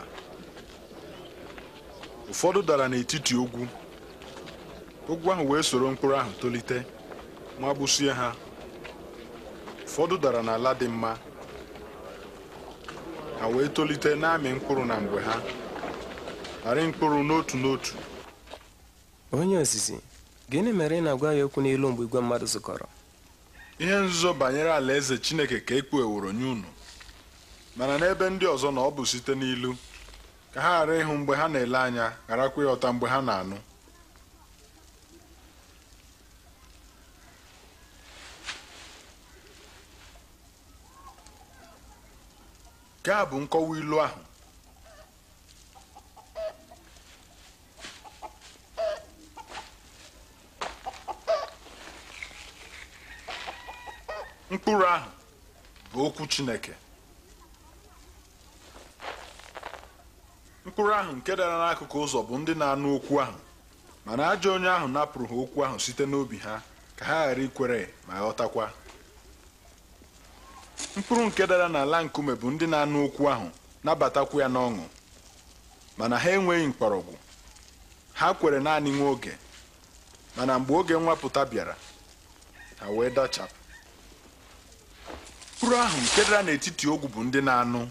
ụfọdụ dara n'etiti ogwu ogwu ahụ wee soro mkpụrụ ahụ tolite ma gbusie ha ụfọdụ dara n'ala dị mma ha wee tolite na-amị mkpụrụ na mgbe ha arị mkpụrụ n'otu n'otu onye ozizi gịnị mere ị na-agwa ya okwu n'ilu mgbe igwe mmadụ zukọrọ ihe nzuzo banyere alaeze chineke ka e kpugheworo nye unu mana n'ebe ndị ọzọ na ọ bụ site n'ilu ka ha ghara ịhụ mgbe ha na-ele anya gharakwa ịghọta mgbe ha na-anụ nke a bụ nkọwa ilu ahụ mkpụrụ ahụ bụ okwu Chineke mkpụrụ ahụ nke dara n'akụkụ ụzọ bụ ndị na-anụ okwu ahụ mana ajọ onye ahụ napụrụ ha okwu ahụ site n'obi ha ka ha ghara ikwere ma ghọtakwa mkpụrụ nke dara n'ala nkume bụ ndị na-anụ okwu ahụ nabatakwu ya n'ọṅụ mana ha enweghị mkpọrọgwụ ha kwere naanị nwa oge mana mgbe oge nwapụta bịara ha wee dachapụ mkpụrụ ahụ nke dara n'etiti ogwu bụ ndị na-anụ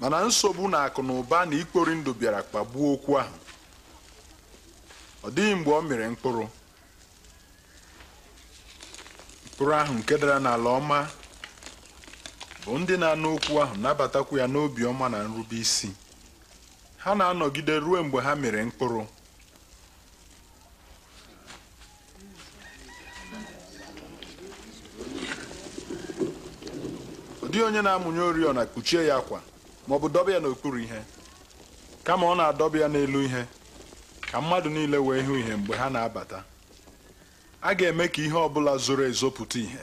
mana nsogbu na akụ na ụba na ikpori ndụ bịara kpagbuo okwu ahụ ọ dịghị mgbe ọ mịrị mkpụrụ mkpụrụ ahụ nke dara n'ala ọma bụ ndị na-anụ okwu ahụ nabatakwu ya n'obi ọma na nrube isi ha na-anọgide ruo mgbe ha mere mkpụrụ ọ onye na-amụnye oriọna kpuchie ya akwa ma ọ bụ dọba ya n'okpuru ihe kama ọ na-adọba ya n'elu ihe ka mmadụ niile wee hụ ihe mgbe ha na-abata a ga-eme ka ihe ọbụla zoro ezo pụta ihe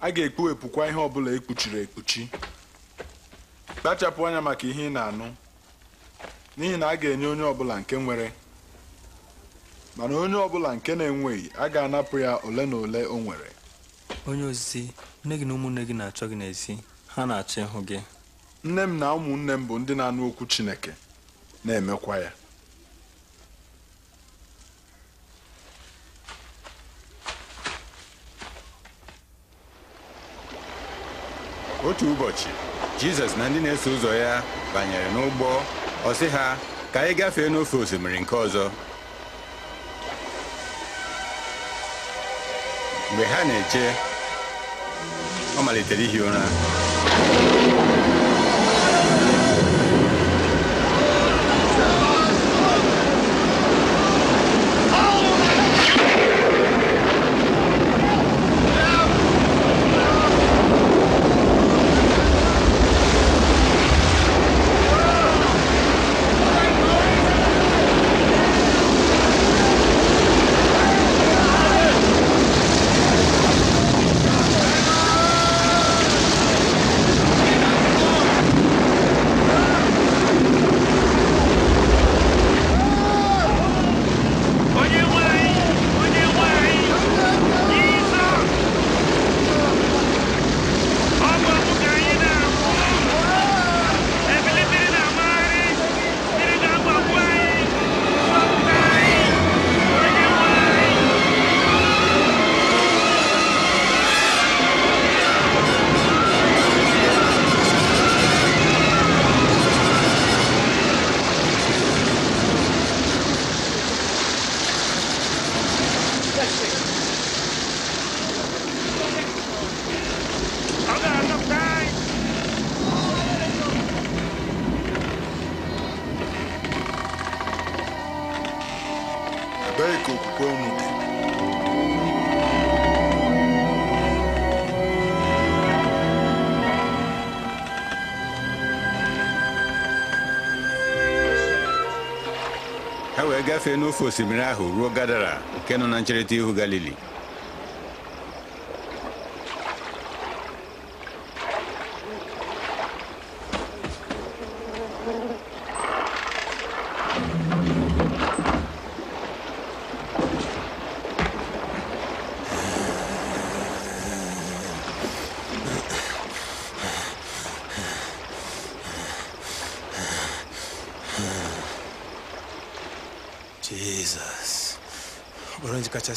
a ga-ekpughepụkwa ihe ọbụla ekpuchiri ekpuchi kpachapụ anya maka ihe ị na-anụ n'ihi na a ga-enye onye ọbụla nke nwere mana onye ọbụla nke na-enweghị a ga-anapụ ya ole na ole o nwere onye ozizi nne gị na ụmụnne gị na-achọ gị n'ezi ha na-achọ ịhụ gị nne m na ụmụnne m bụ ndị na-anụ okwu Chineke na-emekwa ya otu ụbọchị Jizọs na ndị na-eso ụzọ ya banyere n'ụgbọ ọ ha ka anyị gafee n'ofe osimiri nke ọzọ mgbe ha na-eche ọ malitere ihi ụra gafee n'ofe osimiri ahụ ruo Gadara nke nọ na ncherịta ihu Galili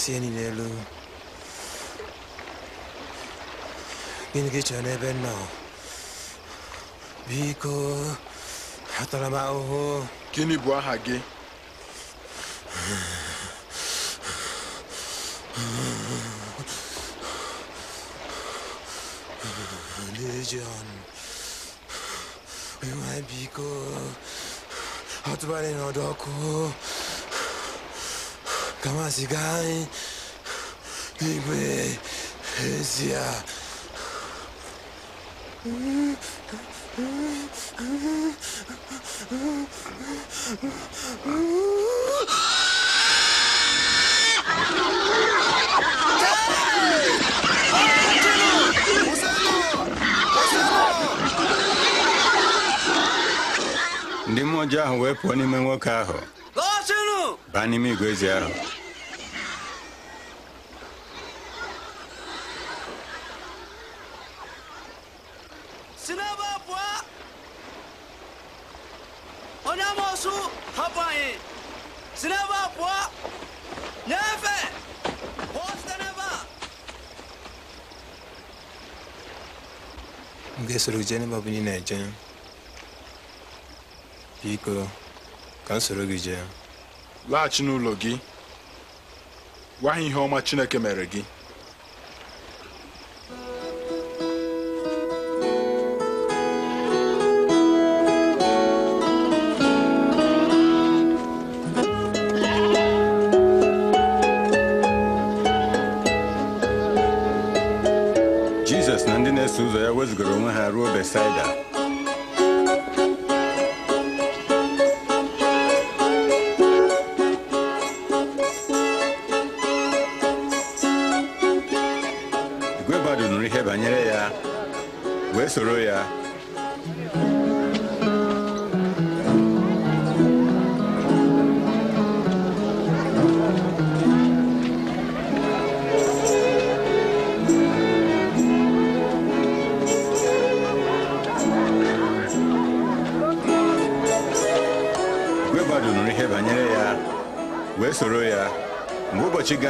see any there, Lou? Gonna get you in that bed now. Biko, Hatalamao. Kini Buahage. Legion. We want Biko. d Hatabane no Doko. kama sikai nigwe esia ndị mmụọ ji ahụ wee pụọ n'ime nwoke ahụ baa n'ime igwe ezi ahụ soro gị jee n'ebe ọbụla ị na-eje biko ka m soro gị jee laghachi n'ụlọ gị gwa ihe ọma Chineke mere gị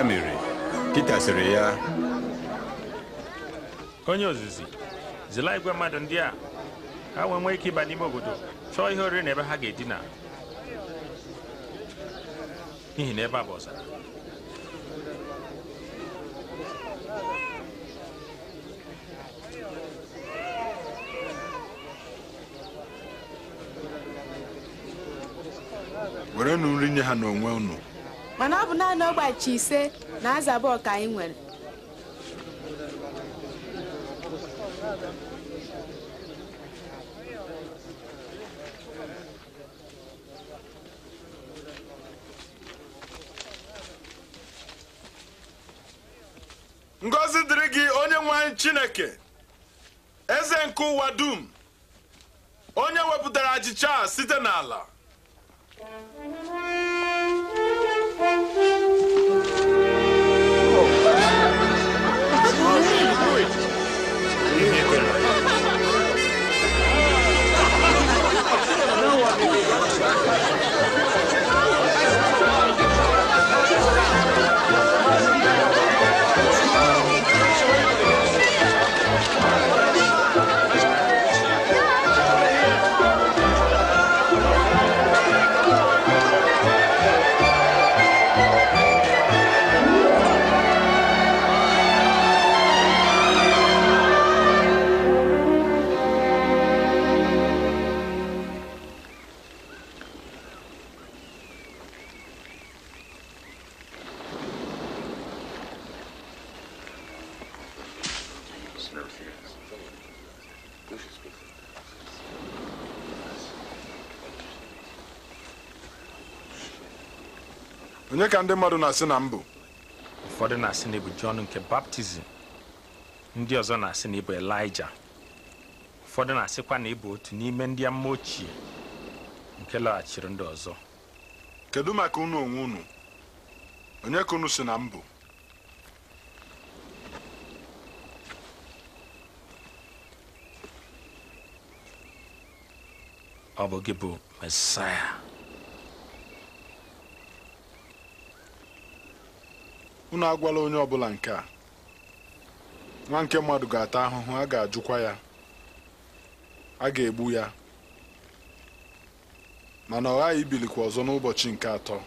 Ya mere, sịrị ya onye ozizi zila igwe mmadụ ndị a ha wee nwee ike ịba n'ime obodo chọọ ihe oriri na ebe ha ga-edina n'ihi na ebe a bụ ọzara nri nye ha n'onwe unu naanị ọgbachi ise na azaba ọka anyị nwere ngọzi dịrị gị onye nwe chineke eze nke ụwa dum onye wepụtara achịcha site n'ala ka ndị mmadụ na-asị na mbụ ụfọdụ na-asị na ịbụ Jọn nke baptizim ndị ọzọ na-asị na ịbụ Elija ụfọdụ na-asịkwa na ịbụ otu n'ime ndị mma ochie nke laghachiri ndị ọzọ kedu maka unu onwe unu onye ka unu si na mbụ ọ bụ gị bụ mesaya unu agwala onye ọbụla nke a nwa nke mmadụ ga-ata ahụhụ a ga-ajụkwa ya a ga-egbu ya mana ọ ghaghị ibilikwa ọzọ n'ụbọchị nke atọ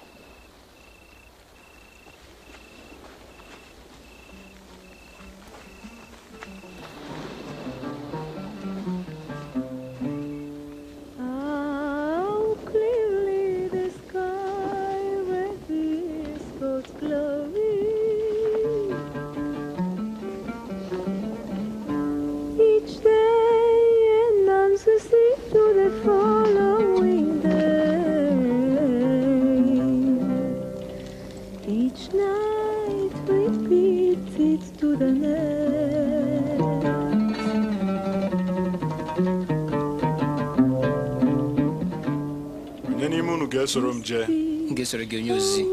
wee soro m jee m ga-esoro gị onye ozizi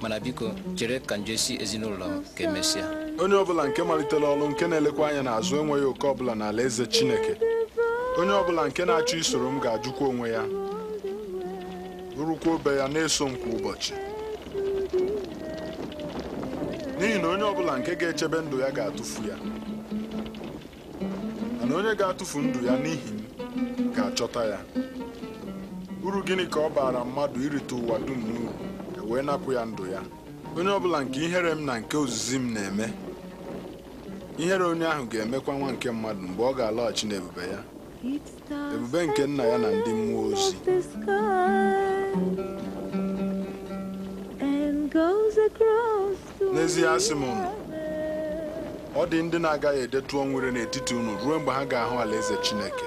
mana biko chere ka m si ezinụlọ m ka emesịa onye ọbụla nke malitela ọlụ nke na-elekwa anya n'azụ enweghị oke ọbụla ala eze Chineke onye ọbụla nke na-achọ isoro m ga-ajụkwa onwe ya bụrụkwa obe ya na-eso m kwa ụbọchị n'ihi na onye ọbụla nke ga-echebe ndụ ya ga-atụfu ya mana onye ga-atụfu ndụ ya n'ihi m ga-achọta ya uru gịnị ka ọ baara mmadụ irite ụwa dum n'uru e wee napụ ya ndụ ya onye ọ bụla nke ihere m na nke ozizi m na-eme ihere onye ahụ ga-emekwa nwa nke mmadụ mgbe ọ ga-alọghachi n'ebube ya ebube nke nna ya na ndị mmụọ ozi n'ezie asị m unu ọ dị ndị na-agaghị edetu ọnwụ n'etiti unu ruo mgbe ha ga-ahụ alaeze Chineke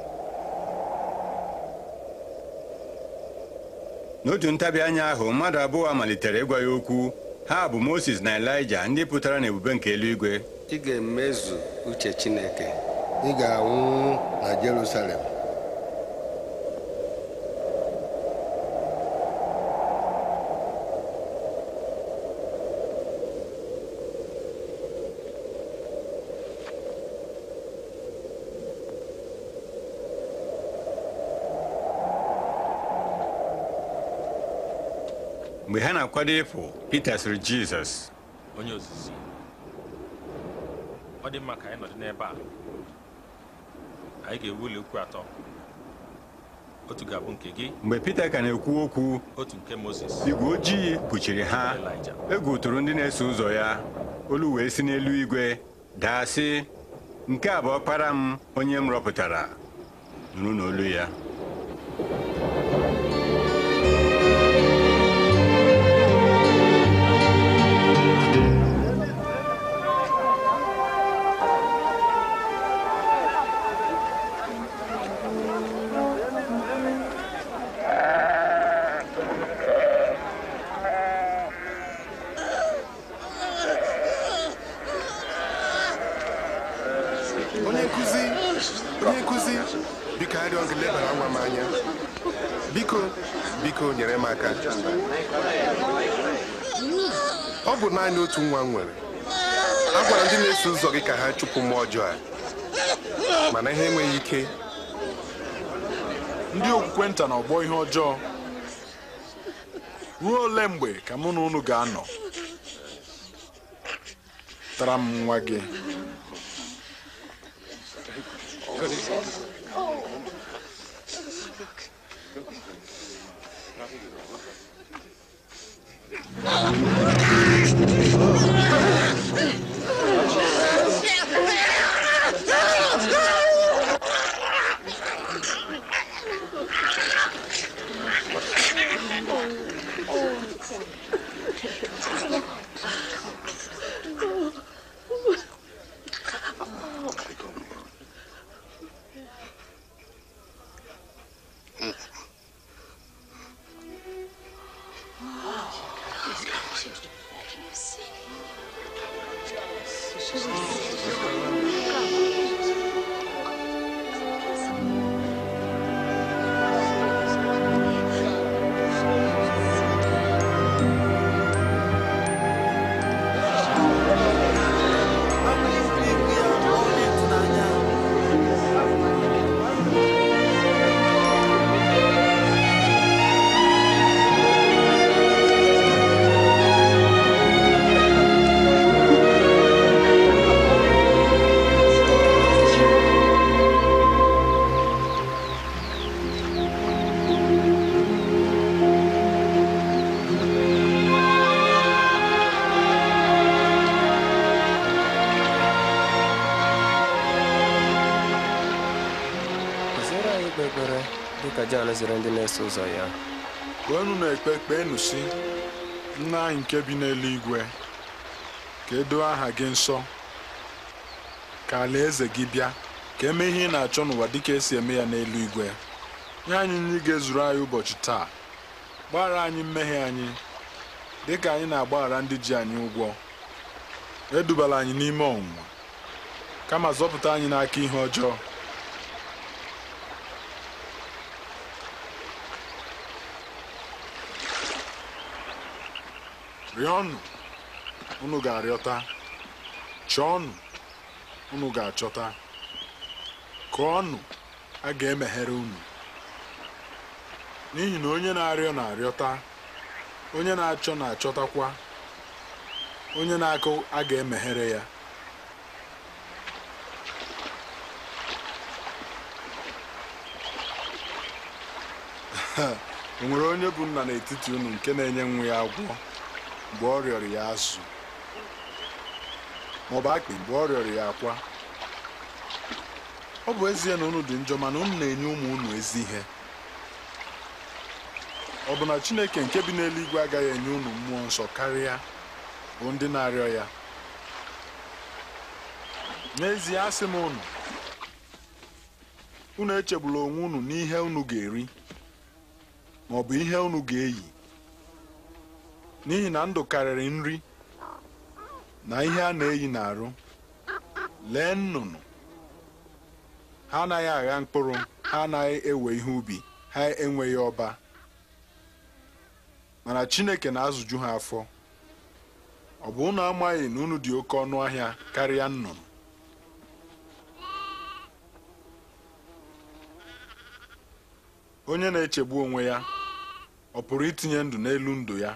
n'otu ntabi anya ahụ mmadụ abụọ malitere ịgwa ya okwu ha bụ moses na elija ndị pụtara n'ebube nke eluigwe ị ga-emezu uche chineke ị ga-anwụ na jerusalem mgbe ha na-akwado ịpụ Pita sịrị Jizọs onye ozizi ọ dị mma ka anyị nọdụ n'ebe a anyị ga-ewu ukwu atọ otu ga-abụ nke gị mgbe Pita ka na-ekwu okwu otu nke Moses igwe ojii kpuchiri ha egwu tụrụ ndị na-eso ụzọ ya olu wee si n'elu igwe daa sị nke a bụ ọkpara m onye m rọpụtara nụrụ n'olu ya nwa nwere a gwara ndị na-eso ụzọ gị ka ha chụpụ mmụọ ọjọọ a mana ha enweghị ike ndị okwukwe nta na ọgbọ ihe ọjọọ ruo ole mgbe ka mụ na unu ga-anọ tara m nwa gị ụzọ ya na-ekpe kpeenụ si nna anyị nke bi n'eluigwe ka edoo aha gị nsọ ka alaeze gị bịa ka emeghị ihe ị na-achọ n'ụwa dịka esi eme ya n'eluigwe nye anyị nri ga-ezuru anyị ụbọchị taa gbaghara anyị mmehie anyị dịka anyị na-agbaghara ndị ji anyị ụgwọ edubala anyị n'ime ọnwụnwa kama zọpụta anyị n'aka ihe ọjọọ rịọnụ unu ga-arịọta chọọnụ unu ga-achọta kụọnụ a ga-emeghere unu n'ihi na onye na-arịọ na-arịọta onye na-achọ na-achọtakwa onye na-akụ a ga-emeghere ya o nwere onye bụ nna n'etiti unu nke na-enye nwa ya agwọ mgbe ọ rịọrọ ya azụ bụ akpị mgbe ọ rịọrọ ya akwa ọ bụ ezie na unu dị njọ mana unu na-enye ụmụ unu ezi ihe ọ bụ na Chineke nke bi n'eluigwe agaghị enye unu mmụọ nsọ karịa bụ ndị na-arịọ ya n'ezie asị m unu unu echegbula onwe unu n'ihe unu ga-eri maọbụ bụ ihe unu ga-eyi n'ihi na ndụ karịrị nri na ihe a na-eyi n'arụ lee nnụnụ ha anaghị agha mkpụrụ ha anaghị ewe ihe ubi ha enweghị ọba mana Chineke na-azụju ha afọ ọ bụ ụnụ amaghị na unu dị oke ọnụ ahịa karịa nnụnụ onye na-echegbu onwe ya ọ pụrụ itinye ndụ n'elu ndụ ya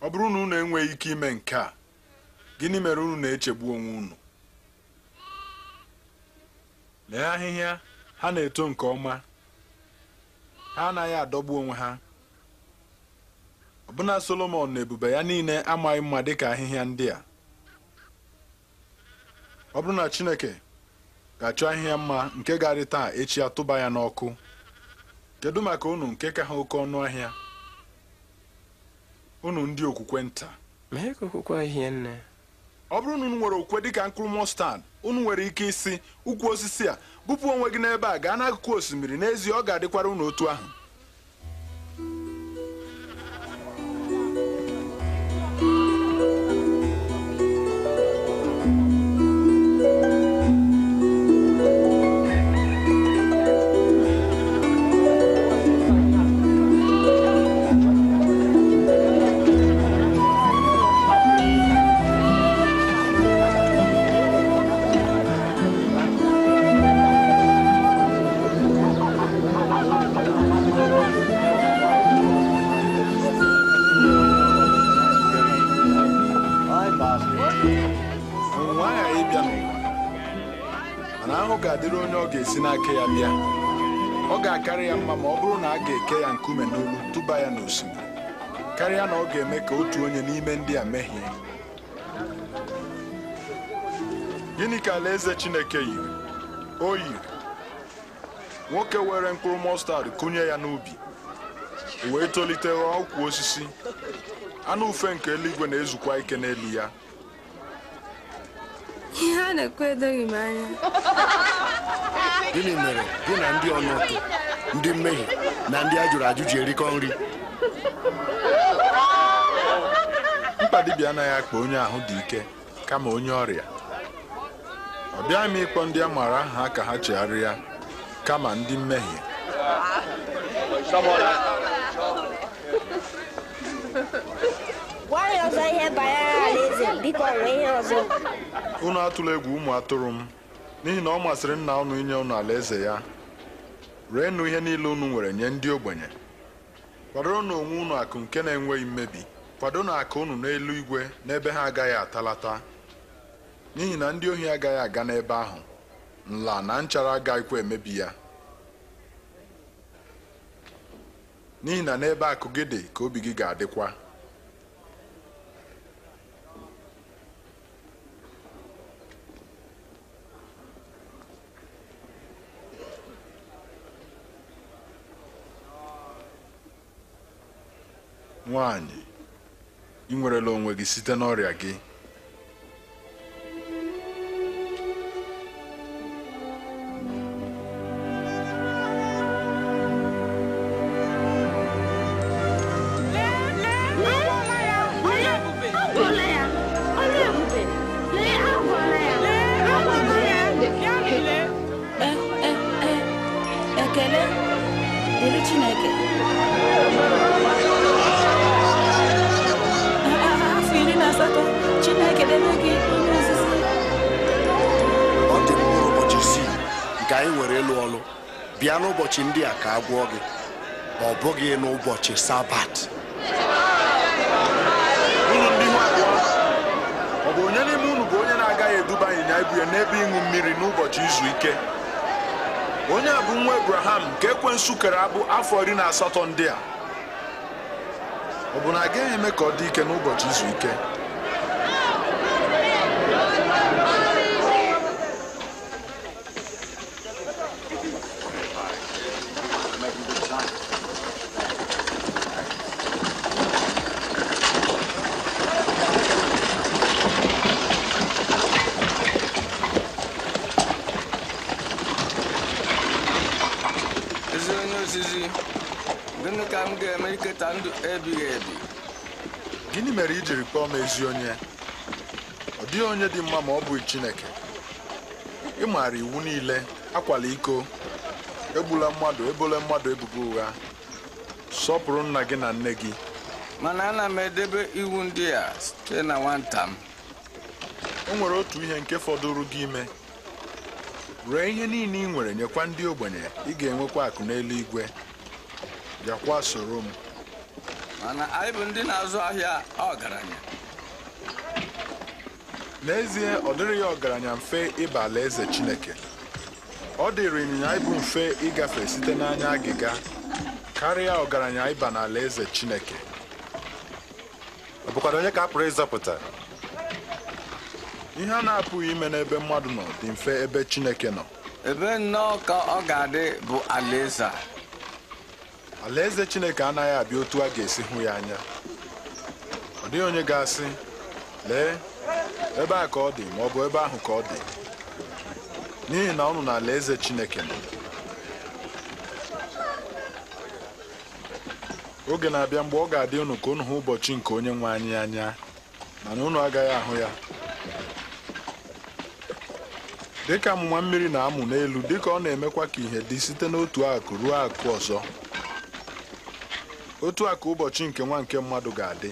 ọ bụrụ na unu enweghị ike ime nke a gịnị mere unu na-echegbu onwe unu lee ahịhịa ha na-eto nke ọma ha anaghị adọgbu onwe ha ọbụna solomon na ebube ya niile amaghị mma dịka ahịhịa ndị a ọ bụrụ na Chineke ga-achọ ahịhịa mma nke ga taa echi atụba ya n'ọkụ kedu maka unu nke ka ha oke ọnụ ahịa unu ndị okwukwe nta mee ka okwukwe ọ bụrụ na unu nwere okwukwe dịka mkpụrụ mọstad unu nwere ike isi ukwu osisi a bupụ onwe gị n'ebe a gaa n'akụkụ osimiri n'ezie ọ ga-adịkwara unu otu ahụ ka otu onye n'ime ndị a mehie gịnị ka alaeze Chineke yiri o yiri nwoke were mkpụrụ mọstad kụnye ya n'ubi wee tolite ghọọ osisi anụ ufe nke eluigwe na-ezukwa ike n'elu ya ihe a na-ekwu edoghị m anya gịnị mere gị na ndị ọnụụtụ ndị mmehie na ndị a jụrụ ajụ erikọ nri mkpa dibịa anaghị akpa onye ahụ dị ike kama onye ọrịa ọ bịaghị m ịkpọ ndị a maara aha ka ha chegharịa kama ndị mmehie gwa ya ihe alaeze biko ihe unu atụla egwu ụmụ atụrụ m n'ihi na ọ masịrị nna unu inye unu alaeze ya reenụ ihe niile unu nwere nye ndị ogbenye kwadoro na onwe unu akụ nke na-enweghị mmebi kwado na aka unu n'elu igwe n'ebe ha agaghị atalata n'ihi na ndị ohi agaghị aga n'ebe ahụ nla na nchara agaghịkwa emebi ya n'ihi na n'ebe akụ gị dị ka obi gị ga-adịkwa nwanyị ị nwerela onwe gị site n'ọrịa gị ụbọchị ndị a ka agwọ gị ọ bụghị n'ụbọchị sabat ọ bụ onye n'ime unu bụ onye na-agaghị eduba ịnyịnya ibu ya n'ebe ịṅụ mmiri n'ụbọchị izu ike onye a bụ nwa ebraham nke ekwensu kere abụ afọ iri na asatọ ndị a ọ bụ na agaghị eme ka ọ dị ike n'ụbọchị izu ike kpọọ m ezi onye ọ dịghị onye dị mma ma ọ bụghị Chineke ị maara iwu niile akwala iko egbula mmadụ ebola mmadụ ebubo ụgha sọpụrụ nna gị na nne gị mana ana m edebe iwu ndị a site na nwata m nwere otu ihe nke fọdụrụ gị ime ree ihe niile ị nwere nyekwa ndị ogbenye ị ga-enwekwa akụ n'eluigwe bịakwa soro m mana anyị bụ ndị na-azụ ahịa ọgaranya n'ezie ọ dịrị ya ọgaranya mfe ịba alaeze Chineke ọ dịrị ịnyịnya ibu mfe ịgafe site n'anya agịga karịa ọgaranya ịba Alaeze Chineke ọbụkwado onye ka a pụrụ ịzọpụta ihe a na-apụghị ime n'ebe mmadụ nọ dị mfe ebe Chineke nọ ebe nnọọ ka ọ ga-adị bụ alaeze a alaeze chineke anaghị abịa otu a ga-esi hụ ya anya ọ dịghị onye ga-asị lee ebe a ka ọ dị ma ọ bụ ebe ahụ ka ọ dị n'ihi na ọnụ na eze chineke oge na-abịa mgbe ọ ga-adị unu ka ụnụ hụ ụbọchị nke onye nwe anyị anya mana unu agaghị ahụ ya dịka amụma mmiri na-amụ n'elu dịka ọ na-emekwa ka ihe dị site n'otu akụ ruo akụ ọzọ otu a ka ụbọchị nke nwa nke mmadụ ga-adị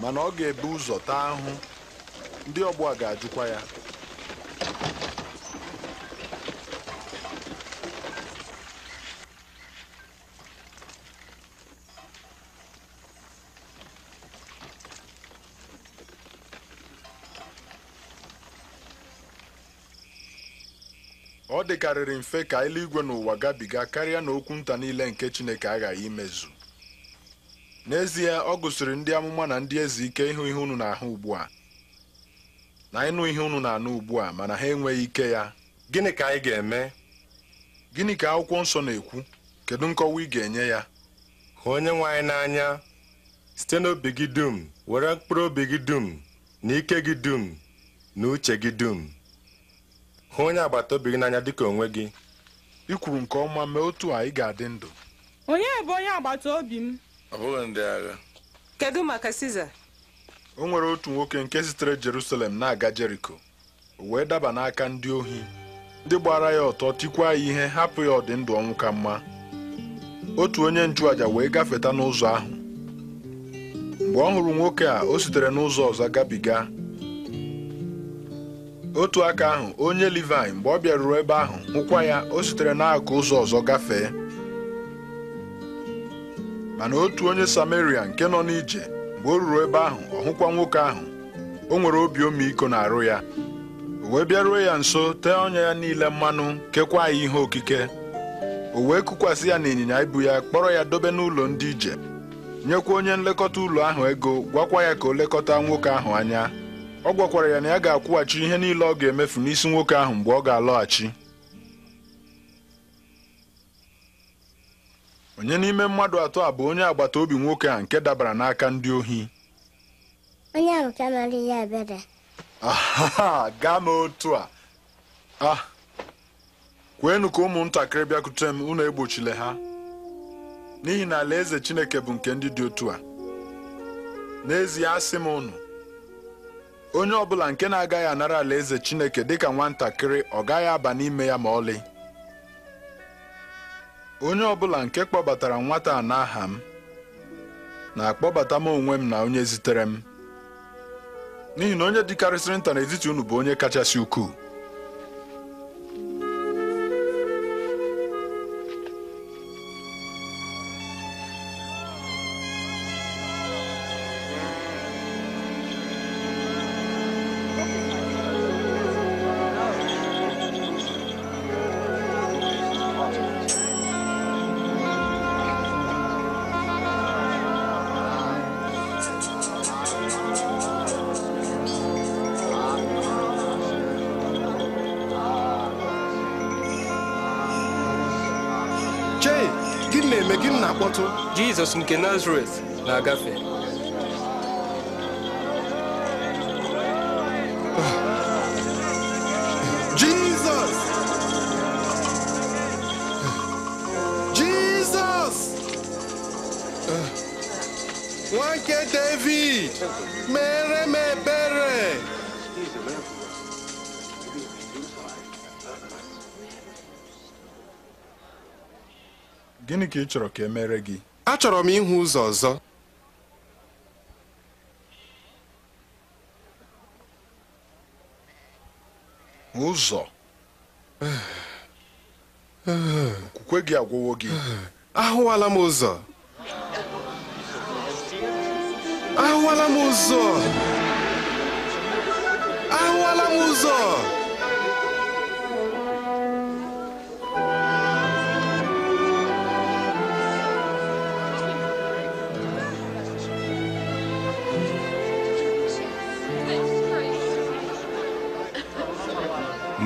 mana ọ ga ebe ụzọ taa ahụ ndị ọgbọ a ga-ajụkwa ya ọ dịkarịrị mfe ka eluigwe n'ụwa gabiga karịa na okwu nta niile nke Chineke aghaghị imezu n'ezie ọ gụsịrị ndị amụma na ndị eze ike ịhụ ihe unu na-ahụ ugbu a na ịnụ ihe unu na-anụ ugbu a mana ha enweghị ike ya gịnị ka anyị ga-eme gịnị ka akwụkwọ nsọ na-ekwu kedu nkọwa ị ga-enye ya hụ onye nwe anyị n'anya site n'obi gị dum were mkpụrụ obi gị dum na ike gị dum na uche gị dum hụ onye agbata obi gị n'anya dịka onwe gị ị kwuru nke ọma mee otu a ị ga-adị ndụ onye bụ onye agbata obi m ọ bụghị ndị agha kedu maka siza o nwere otu nwoke nke sitere jerusalem na-aga jeriko o wee daba n'aka ndị ohi ndị gbara ya ọtọ tikwa ya ihe hapụ ya ọdị ndụ ọnwụ ka mma otu onye nchụaja wee gafeta n'ụzọ ahụ mgbe ọ hụrụ nwoke a o sitere n'ụzọ ọzọ gabiga otu aka ahụ onye Livaị mgbe ọ bịaruru ebe ahụ hụkwa ya o sitere n'akụ ụzọ ọzọ gafee mana otu onye Sameria nke nọ n'ije mgbe o ruru ebe ahụ ọhụkwa nwoke ahụ o nwere obi ọmịiko na-arụ ya o wee bịaruo ya nso tee ọnya ya niile mmanụ kekwa ya ihe okike o wee kụkwasị ya n'ịnyịnya ibu ya kpọrọ ya dobe n'ụlọ ndị ije nyekwa onye nlekọta ụlọ ahụ ego gwakwa ya ka o lekọta nwoke ahụ anya ọ gwakwara ya na ya ga-akwụghachi ihe niile ọ ga-emefu n'isi nwoke ahụ mgbe ọ ga-alọghachi onye n'ime mmadụ atọ a bụ onye agbata obi nwoke a nke dabara n'aka ndị ohi onye ahụ ka mara ihe ebere gaa m otu a ah, kweenu ka ụmụntakịrị bịakute m unu egbochile ha n'ihi na alaeze Chineke bụ nke ndị dị otu a n'ezie asị m unu onye ọbụla nke na-agaghị anara alaeze Chineke dịka nwatakịrị ọ gaghị aba n'ime ya ma ọlị onye ọbụla nke kpọbatara nwata a n'aha m na-akpọbata m onwe m na onye zitere m n'ihi na onye dịkarịsịrị nta n'etiti unu bụ onye kachasị ukwuu Jizọs nke Nazaret na-agafe Jizọs Jizọs nwa David mere m ebere gịnị ka ị chọrọ ka e mere gị achọrọ m ịhụ ụzọ ọzọ ụzọ okwukwe gị agwụwo gị ahụwala m ụzọ ahụwala m ụzọ ahụwala m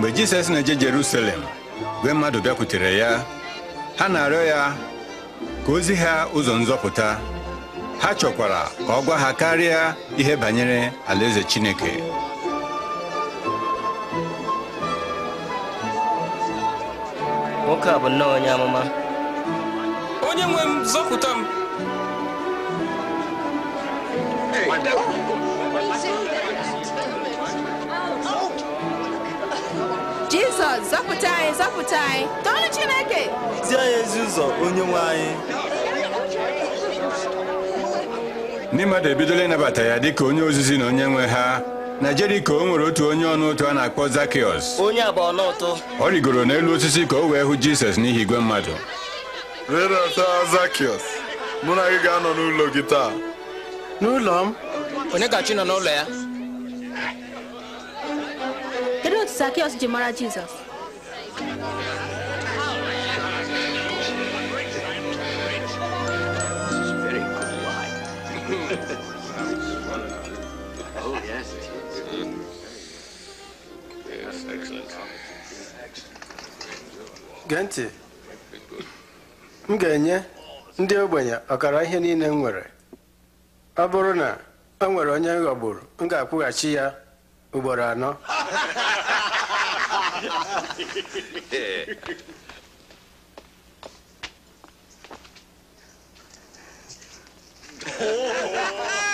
mgbe Jizọs na-eje jerusalem gwe mmadụ bịakwutere ya ha na-arịọ ya ka ozi ha ụzọ nzọpụta ha chọkwara ka ọ gwa ha karịa ihe banyere alaeze chineke nwoke a bụ nnọọ onye amụma onye nwe m zọpụta m Zọpụta anyị, zọpụta anyị, tọọrọ Chineke. Zie anyị ezi ụzọ onye nwe anyị. Ndị mmadụ ebidola ịnabata ya dịka onye ozizi na onye nwe ha na Jeriko o nwere otu onye ọnụ ụtụ a na-akpọ zakios. Onye abụọ n'ụtụ. Ọ rigoro n'elu osisi ka o wee hụ Jizọs n'ihi igwe mmadụ. Rịdata Zakiọs, mụ na gị ga-anọ n'ụlọ gị taa. N'ụlọ m? Onye gachi nọ n'ụlọ ya? Kedu otu Zakiọs ji mara Jizọs? gee ntị m ga-enye ndị ogbenye ọkara ihe niile m nwere ọ bụrụ na o nwere onye m ghọgburu m ga-akwụghachi ya ugboro anọ Oh!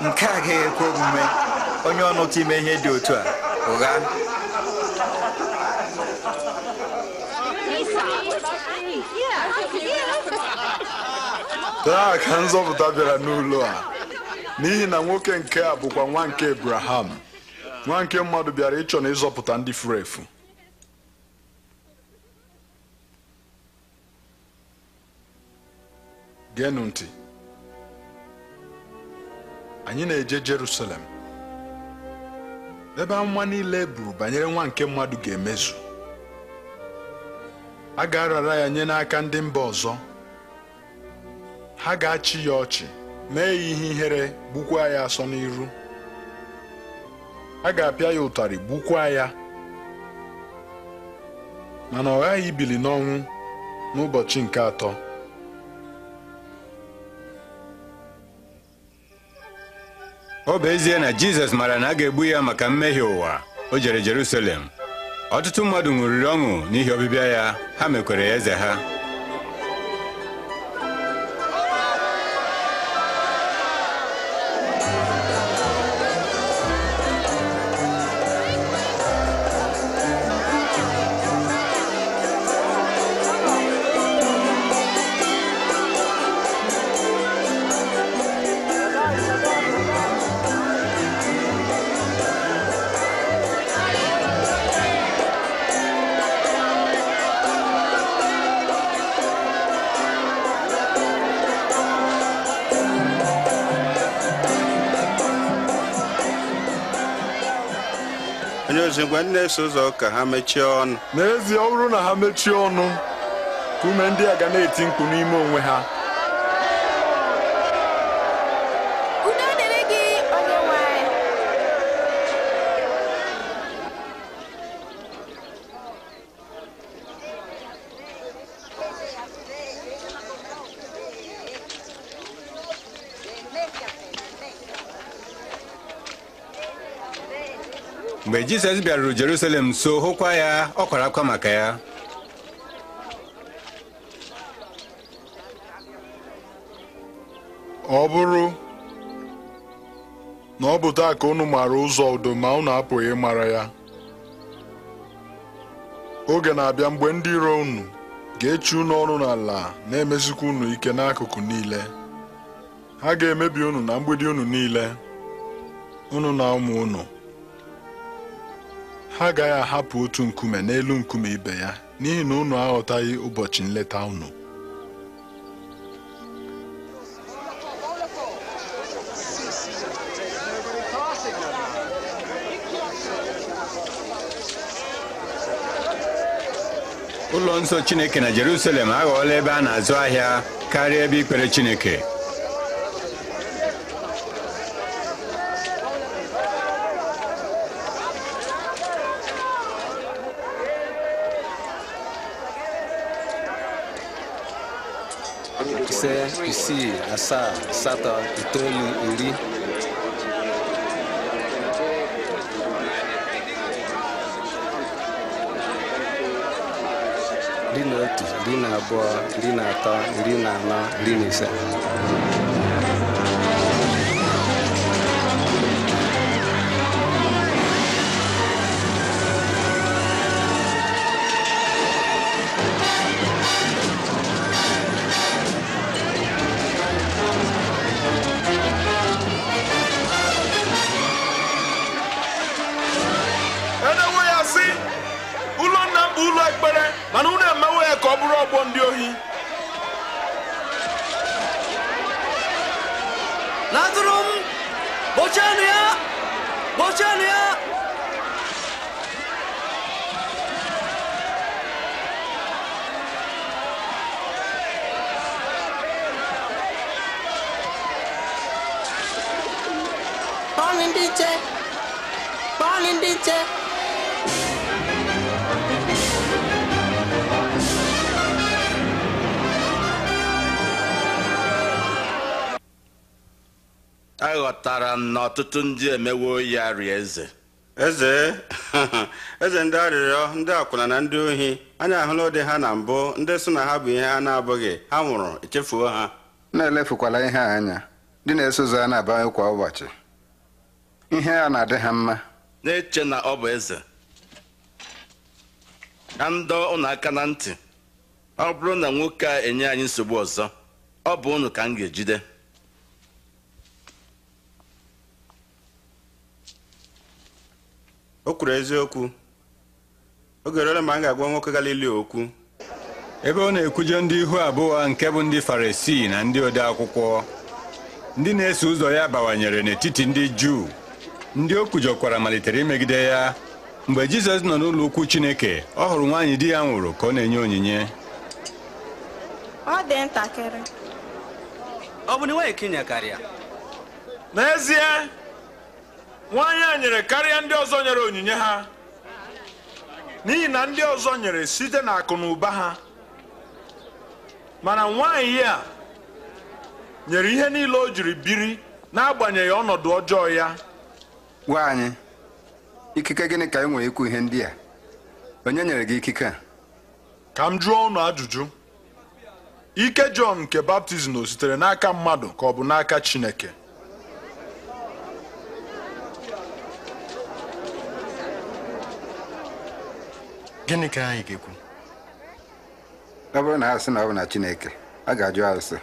nke a ga ekwe omume onye ọnụta ime ihe dị otu a ụgha taa ka nzọpụta bịara n'ụlọ a n'ihi na nwoke nke a bụkwa nwa nke Abraham nwa nke mmadụ bịara ịchọ na ịzọpụta ndị furu efu anyị na-eje Jerusalem ebe amụma niile e buru banyere nwa nke mmadụ ga-emezu a ga-arara ya nye n'aka ndị mba ọzọ ha ga-achị ya ọchị mee ya ihe ihere gbukwaa ya asọ n'iru a ga-apịa ya ụtarị gbukwaa ya mana ọ ghaghị ibili n'ọnwụ n'ụbọchị nke atọ ọ bụ ezie na jizọs mara na a ga-egbu ya maka mmehie ụwa o jere Jerusalem ọtụtụ mmadụ ṅụrịrị ọṅụ n'ihi ọbịbịa ya ha mekwere ya eze ha ma na-eso ụzọ ka ha mechie ọnụ n'ezie ọ bụrụ na ha mechie ọnụ ka ume ndị a ga na-eti mkpu n'ime onwe ha mgbe jizọs bịaruru jerusalem nso hụkwa ya ọ kwara akwa maka ya ọ bụrụ na ọ bụ taa ka unu maara ụzọ udo ma unu apụghị ịmara ya oge na-abịa mgbe ndị iro unu ga-echi unu ọnụ n'ala na emezikwa unu ike n'akụkụ niile ha ga-emebi unu na mgbidi unu niile unu na ụmụ unu ha agaghị ahapụ otu nkume n'elu nkume ibe ya n'ihi na unu aghọtaghị ụbọchị nleta unu ụlọ nsọ Chineke na Jerusalem aghọọla ebe a na-azụ ahịa karịa ebe ikpere Chineke asaa asatọ itoolu iri iri na otu iri na abụọ iri na atọ iri na anọ iri na ise na ọtụtụ ndị emewo ya rịa eze eze eze ndị arịrịọ ndị akwụna na ndị ohi anyị ahụla ụdị ha na mbụ ndị so na ha bụ ihe a na-abụghị ha nwụrụ echefuo ha na-elefukwala ihe anya ndị na-eso ụzọ a na-abawanye kwa ụbọchị ihe a na-adị ha mma na-eche na ọ bụ eze na ndọ ụnụ aka na ntị ọ bụrụ na nwoke a enye anyị nsogbu ọzọ ọ bụ ụnụ ka m ga-ejide o kwuru eziokwu oge rere ma m ga-agwa nwoke galili okwu ebe ọ na ekwuje ndị ihu abụọ nke bụ ndị farisii na ndị ode akwụkwọ ndị na-eso ụzọ ya bawanyere n'etiti ndị juu ndị o kwujọkwara malitere imegide ya mgbe jizọs nọ n'ụlọ ukwu chineke ọ hụrụ nwaanyị di ya nwụrụ ka ọ na-enye onyinye ọ bụ na kinya karịa n'ezie nwaanyị a nyere karịa ndị ọzọ nyere onyinye ha n'ihi na ndị ọzọ nyere site na akụ na ụba ha mana nwaanyị a nyere ihe niile o jiri biri n'agbanyeghị ọnọdụ ọjọọ ya gwa anyị ikike gịnị ka ị nwere ikwu ihe ndị a onye nyere gị ikike a ka m jụọ unu ajụjụ ike Jọn nke baptizim o sitere n'aka mmadụ ka ọ bụ n'aka Chineke gịnị ka anyị ga-ekwu ọ bụrụ na ha sị na ọ bụ na Chineke a ga-ajụ arụsị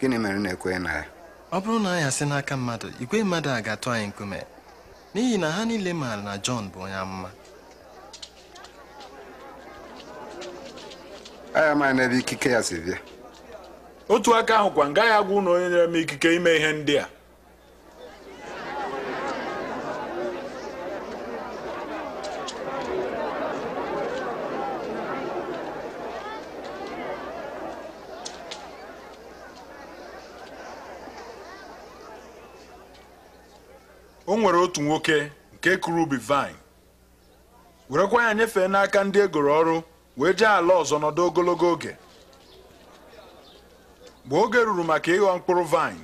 gịnị mere na-ekweghị na ya ọ bụrụ na anyị asị n'aka mmadụ igwe mmadụ a ga-atụ anyị nkume n'ihi na ha niile maara na Jọn bụ onye amụma anyị amaghị n'ebe ikike ya si bịa otu aka ahụkwa ngaghị agwa ụlọ onye na-eme ikike ime ihe ndị a o nwere otu nwoke nke kụrụ ubi vine werekwa ya nyefee n'aka ndị egoro ọrụ wee jee ala ọzọ nọdụ ogologo oge mgbe oge ruru maka ịghọ mkpụrụ vine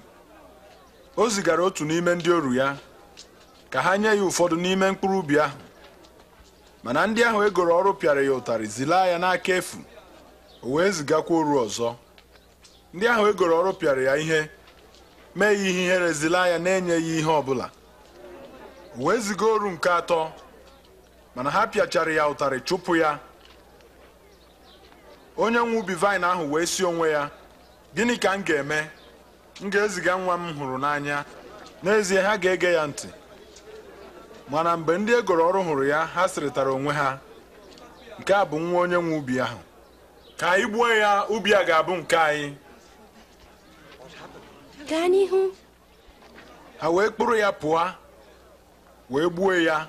o zigara otu n'ime ndị oru ya ka ha nye ya ụfọdụ n'ime mkpụrụ ubi ahụ mana ndị ahụ egoro ọrụ pịara ya ụtarị zila ya n'aka efu o wee zigakwa oru ọzọ ndị ahụ egoro ọrụ pịara ya ihe mee ya ihe ihere zilaa ya na-enyeghị ihe ọbụla wee ziga oru nke atọ mana ha pịachara ya ụtarị chụpụ ya onye nwe ubi vaịn ahụ wee si onwe ya gịnị ka m ga-eme m ga-eziga nwa m hụrụ n'anya n'ezie ha ga-ege ya ntị mana mgbe ndị egoro ọrụ hụrụ ya ha sịrịtara onwe ha nke a bụ nwa onye nwe ubi ahụ ka anyị gbuo ya ubi a ga-abụ nke anyị ha wee kpụrụ ya pụọ wee gbuo ya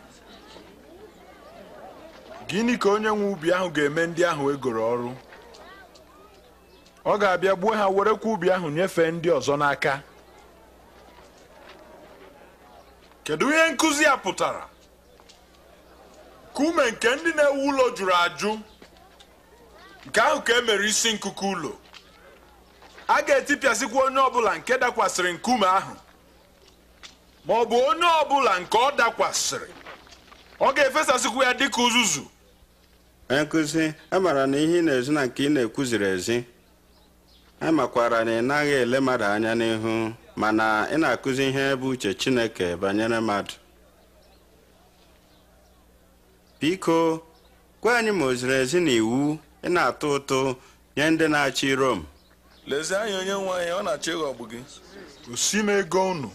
gịnị ka onye nwe ubi ahụ ga-eme ndị ahụ egoro ọrụ ọ ga-abịa gbuo ha werekwa ubi ahụ nyefee ndị ọzọ n'aka kedu ihe nkụzi a pụtara kume nke ndị na-ewu ụlọ jụrụ ajụ nke ahụ ka e mere isi nkuku ụlọ a ga-etipịasịkwa onye ọbụla nke dakwasịrị nkume ahụ ma ọ bụ onye ọbụla nke ọ dakwasịrị ọ ga-efesasịkwu ya dịka uzuzu nkụzi e amara na ihe ị na-ezi na nke ị na-ekwuziri ezi amakwara e na ị naghị ele mmadụ anya n'ihu mana ị na-akụzi ihe bụ uche Chineke banyere mmadụ biko gwa anyị ma o ziri ezi na iwu ị na-atụ ụtụ nye ndị na-achị Rom lezie anya onye nwe anyị ọ na-achọ ịghọgbu gị gosi m ego unu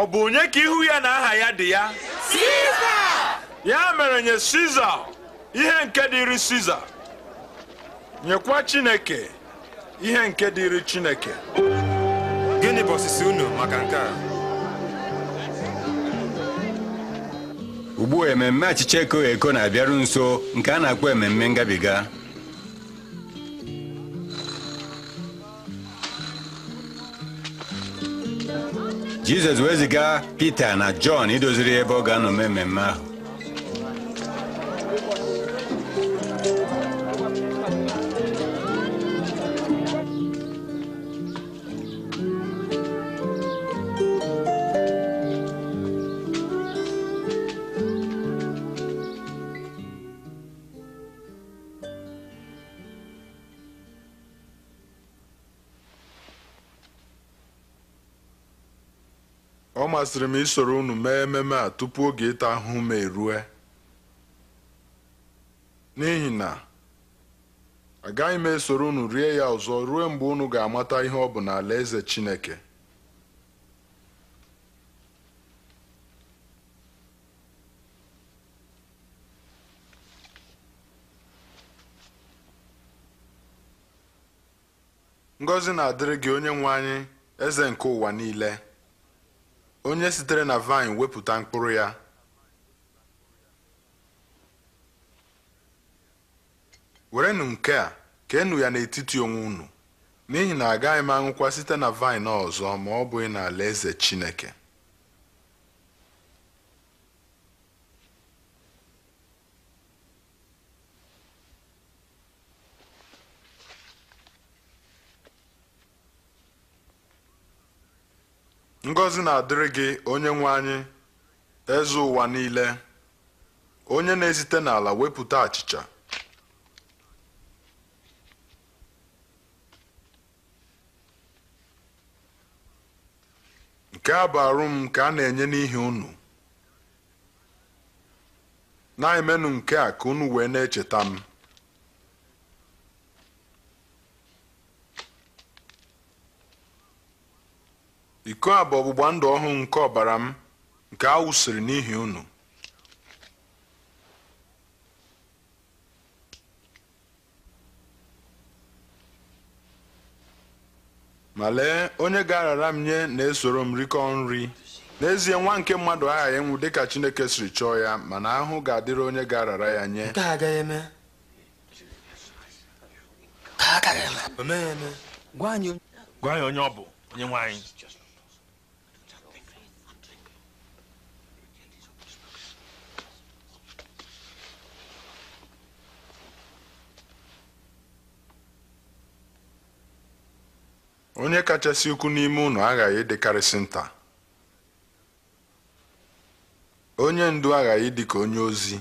ọ bụ onye ka ihu ya na aha ya dị ya ya mere nye siza ihe nke dịrị siza nyekwa chineke ihe nke dịrị chineke gịnị bụ osisi unu maka nke a ugbu a ememme achịcha eko eko na-abịaru nso nke a na-akpọ ememme ngabiga jizọs wee ziga pita na jọn idoziri ebe ọ ga-anọ mee mmemme ahụ masịrị m isoro unu mee ememe a tupu oge ịta ahụhụ m erue n'ihi na agaghị m esoro unu rie ya ọzọ ruo mgbe unu ga-amata ihe ọ bụ n'ala eze Chineke ngọzi na-adịrị gị onye nwe anyị eze nke ụwa niile onye sitere na vine wepụta mkpụrụ ya werenụ nke a keenụ ya n'etiti onwe unu n'ihi na agaghị m anwụkwa site na vine ọzọ ma ọ bụghị n'alaeze Chineke ngọzi na-adịrị gị onye nwe anyị eze ụwa niile onye na-esite n'ala wepụta achịcha nke a bụ arụm m nke a na-enye n'ihi unu na-emenụ nke a ka unu wee na-echeta m iko a bụ ọgbụgba ndụ ọhụụ nke ọbara m nke a wụsịrị n'ihi unu ma lee onye ga-arara m nye na-esoro m rikọọ nri n'ezie nwa nke mmadụ aghaghị ịnwụ dịka chineke siri chọọ ya mana ahụ ga-adịrị onye ga-arara ya nye gwa anyị onye ọ bụ onye nwe onye kachasị ukwu n'ime ụnụ aghaghị ịdịkarịsị nta onye ndu aghaghị dị ka onye ozi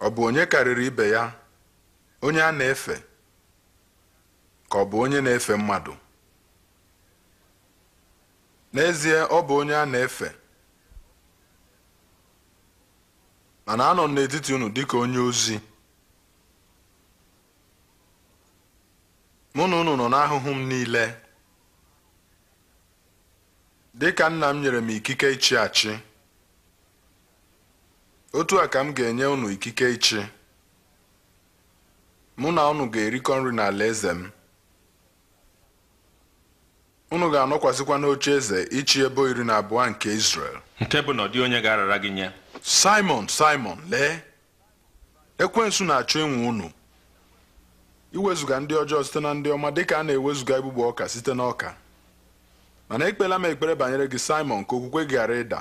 ọ bụ onye karịrị ibe ya onye a na-efe ka ọ bụ onye na-efe mmadụ n'ezie ọ bụ onye a na-efe mana anọ m n'etiti dị ka onye ozi mụ na unu nọ n'ahụhụ m niile dịka nna m nyere m ikike ịchị achị otu a ka m ga-enye unu ikike ịchị mụ na unu ga-erikọ nri n'ala eze m unu ga-anọkwasịkwa n'oche eze ịchị ebe iri na abụọ nke Israel nke bụ na onye ga-arara gị nye Simon Simon lee ekwensu na-achọ enwe unu iwezuga ndị ọjọọ site na ndị ọma dịka a na-ewezuga igbugbo ọka site na ọka mana ekpela m ekpere banyere gị Simon ka okwukwe gara ịda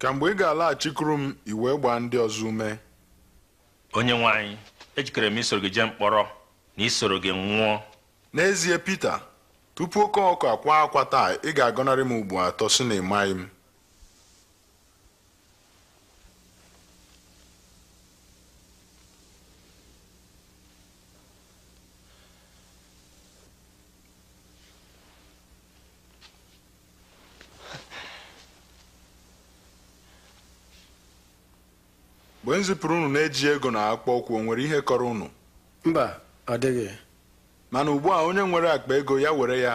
ka mgbe ị ga-alaghachikuru m iwee gbaa ndị ọzọ ume onye nwe ejikere m isoro gị jee mkpọrọ na isoro gị nwụọ n'ezie pete tupu oke ọkụ akwa akwa taa ị ga-agọnarị m ugbo atọ si na ịmaghị m mgbe m ụnụ unu na-eji ego na akpụkpọ ụkwụ o nwere ihe kọrọ unu mba ọ dịghị mana ugbu a onye nwere akpa ego ya were ya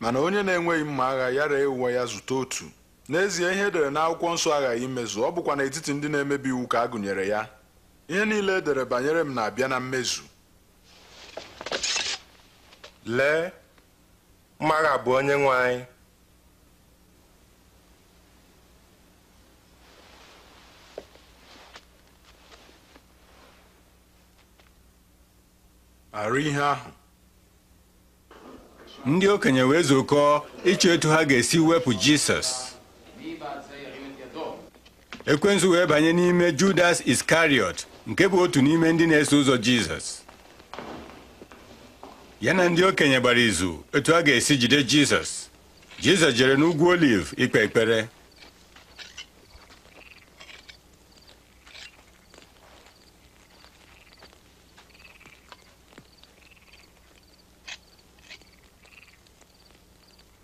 mana onye na-enweghị mma agha ya ree uwe ya zụta otu n'ezie ihe edere n'akwụkwọ nsọ aghaghị imezu ọ bụkwa n'etiti ndị na-emebi iwu ka a gụnyere ya ihe niile edere banyere m na-abịa na mmezu lee mmaagha bụ onye nwe anyị ndị okenye wee zukọọ ịchọ etu ha ga-esi wepụ Jisọs ekwensu wee banye n'ime Judas Iskariot nke bụ otu n'ime ndị na-eso ụzọ Jizọs ya na ndị okenye gbara izu etu ha ga-esi jide Jizọs Jizọs jere n'ugwu Oliv ikpe ekpere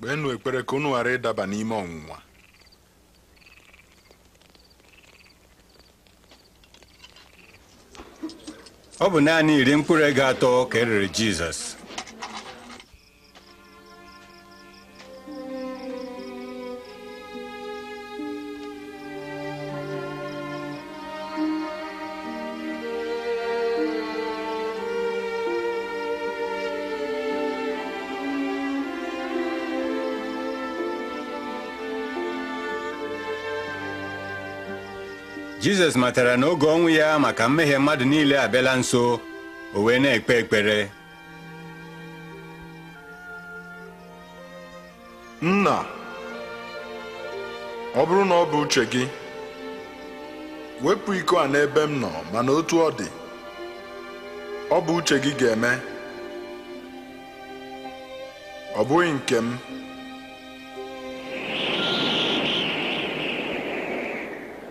kpeenụ ekpere ka unu ghara ịdaba n'ime ọnwụnwa ọ bụ naanị iri mkpụrụ ego atọ ka erere Jizọs jizọs matara na oge ọnwụ ya maka mmehie mmadụ niile abịala nso o wee na-ekpe ekpere nna ọ bụrụ na ọ bụ uche gị wepụ iko a n'ebe m nọ mana otu ọ dị ọ bụ uche gị ga-eme ọ bụghị nke m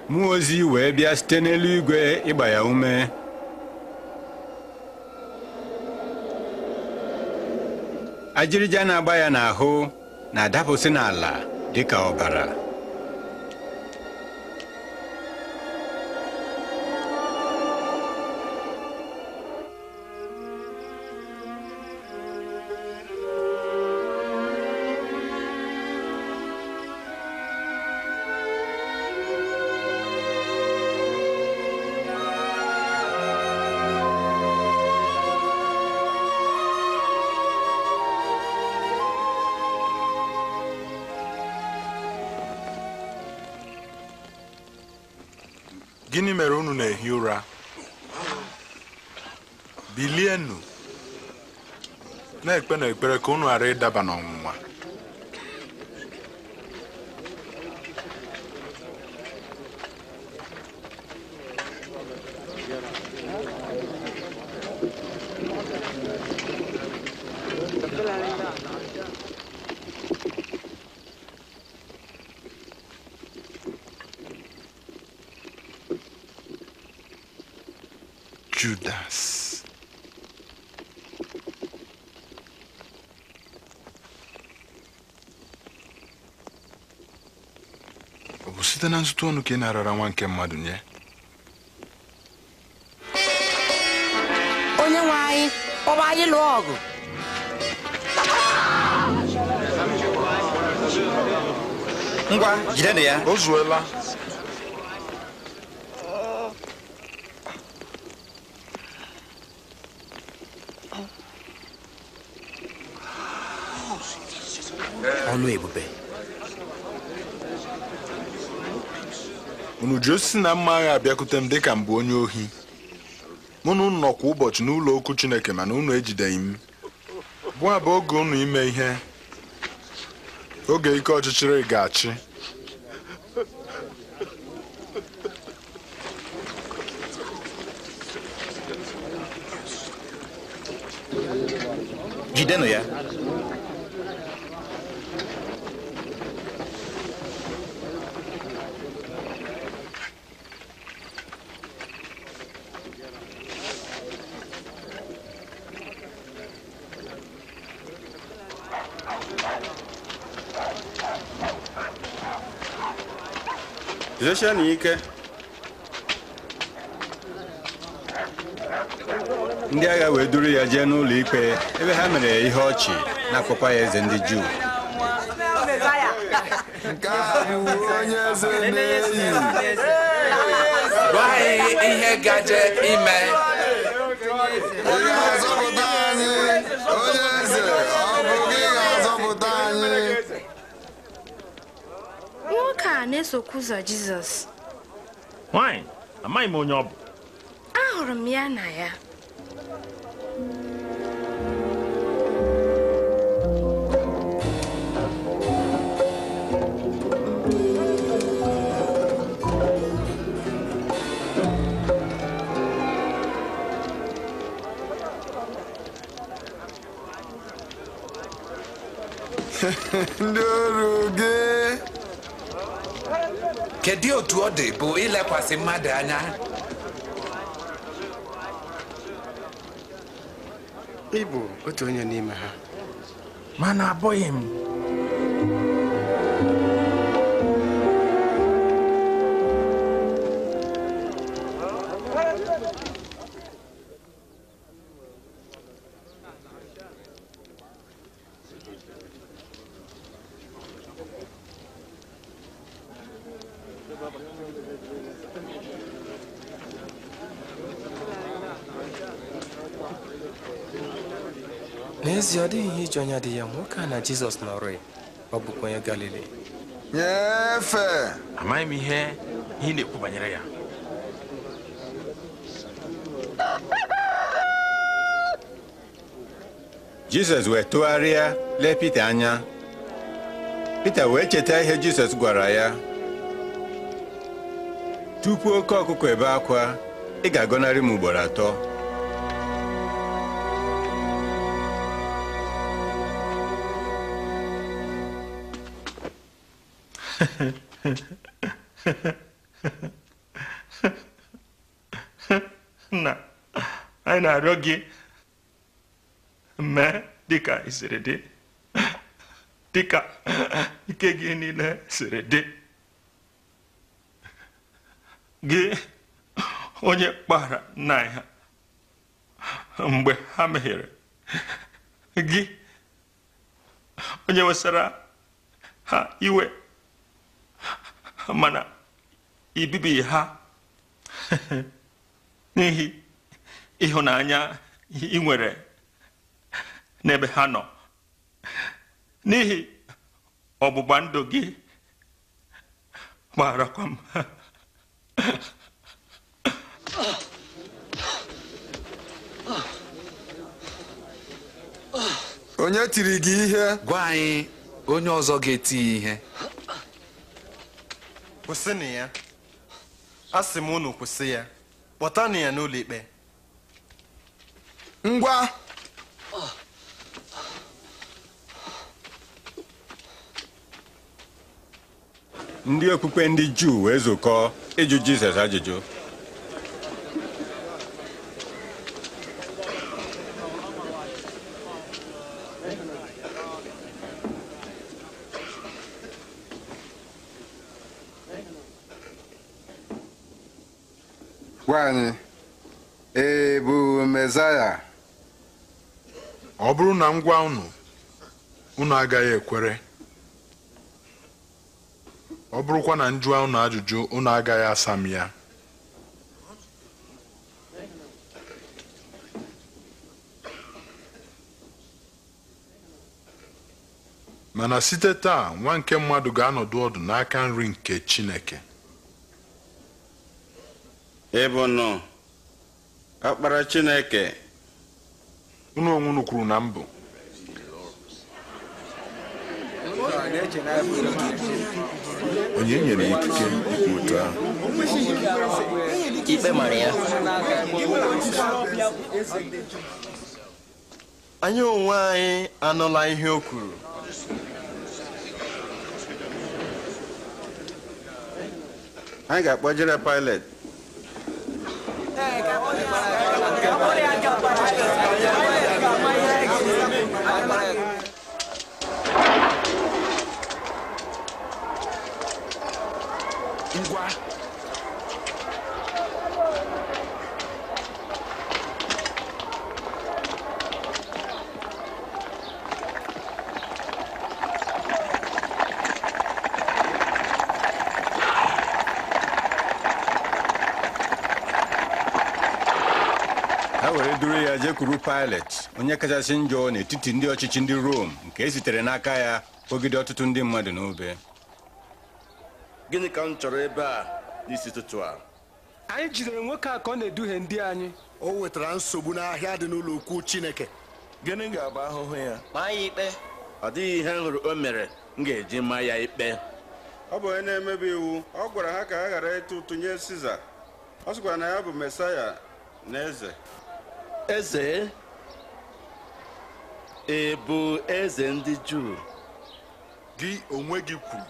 mmụọ ozi wee bịa site n'eluigwe ịgba ya ume ajịrịja na-agba ya n'ahụ na-adapụsị n'ala dị ka ọbara na-ekpere ka unu ghara ịdaba n'ọnwụnwa nzụta ọnụ ka ị narara nwa nke mmadụ nye onye nwe anyị kpọba anyị lụọ ọgụ ngwa ya o zuola ebube uju osisi na mma agha abịakwute m dịka m onye ohi mụ na unu nọ kwa ụbọchị n'ụlọ okwu Chineke mana unu ejideghị m bụ abụ oge unu ime ihe oge ike ọchịchịrị ga-achị jidenụ ya Jiesie na ike ndị agha wee duru ya jee n'ụlọ ikpe ebe ha mere ihe ọchị na ya eze ndị Juu nke a ihe gaje na-esokwu ụzọ Jizọs nwaanyị amaghị m onye ọ bụ ahụrụ m ya na ya ndị ọrụ gị kedu otu ọ dị bụ ilekwasị mmadụ anya ịbụ otu onye n'ime ha mana abụghị m ezi ọ dịghị ihe ijuanya dị ya nwoke na jizọs nọrọ ọ bụkwa galili nyefee amaghị m ihe ihe na-ekwu banyere jizọs wee tụgharịa lee pita anya pita wee cheta ihe jizọs gwara ya tupu oke ọkụkọ ebe akwa ị ga-agọnarị m ugboro atọ na anyị na-arịọ gị mee dịka ị dị dịka ike gị niile siri dị gị onye kpara nna anyị mgbe ha meghere gị onye wesara ha iwe mana ibibi ha n'ihi ịhụnanya ị nwere n'ebe ha nọ n'ihi ọgbụgba ndụ gị gbarakwa m onye tiri gị ihe gwa anyị onye ọzọ ga-eti ihe kwụsịnụ ya sị m unu kwụsị ya kpọtanụ ya n'ụlọ ikpe ngwa ndị okpukpe ndị juu wee zukọọ ịjụ jizọs ajụjụ Gwa anyị e ọ bụrụ na m gwa unu unu agaghị ekwere ọ bụrụkwa na njụọ unu ajụjụ unu agaghị asa m ya mana site taa nwa nke mmadụ ga-anọdụ ọdụ n'aka nri nke Chineke A ọkpara chineke unu onwe unu kwuru na mbụ onye nyere ikike ikpe otu ahụ ikpe mara ya anyị onwe anyị anụla ihe o kwuru anyị ga-akpọjere Pilet Eh, kakaknya. Kakaknya agak parah. kwuru Pilet onye kachasị njọ n'etiti ndị ọchịchị ndị Rom nke e sitere n'aka ya kpọgide ọtụtụ ndị mmadụ n'obe gịnị ka m chọrọ ebe a n'isi ụtụtụ a anyị jidere nwoke a ka ọ na-eduhie ndị anyị o wetara nsogbu n'ahịa dị n'ụlọ ukwu Chineke gịnị ga-abụ ahụhụ ya maa ya ikpe ọ dịghị ihe m hụrụ o mere m ga-eji maa ya ikpe ọ bụ onye na-emebi iwu ọ gwara ha ka ha ghara ịtụ ụtụ nye Siza ọ sịkwara na ya bụ Mesaya na eze eze ị bụ eze ndị juu gị onwe gị kwuru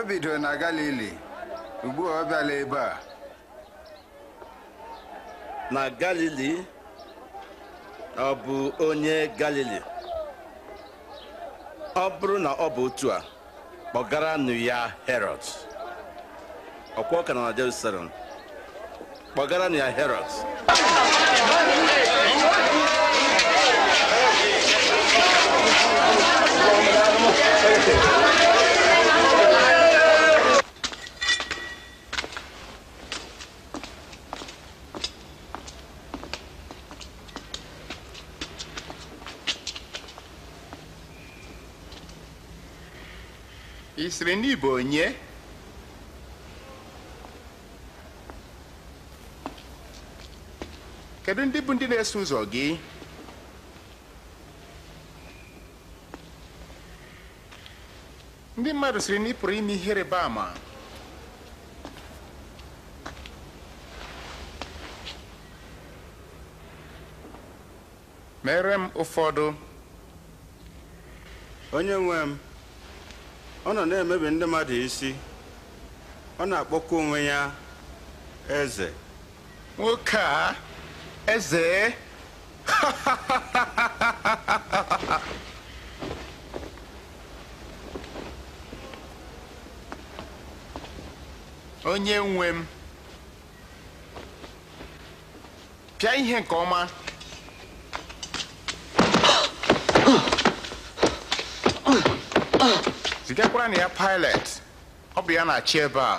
o bidoro na galili ugbua ọ bịala ebe a na galili ọ bụ onye galili ọ bụrụ na ọ bụ otu a kpọgaranụ ya herod ọkwa ka na jerusalem pagaran ya heroes isiri n'Igbo bonye. kedu ndị bụ ndị na-eso ụzọ gị ndị mmadụ siri na ị pụrụ ime ihe rịba ama mere m ụfọdụ onye nwe m ọ nọ na-emebi ndị mmadụ isi ọ na-akpọkwa onwe ya eze nwoke a Eze. onye nwe m pịa ihe nke ọma zigakwara na ya pilot ọ bụ ya na-achị ebe a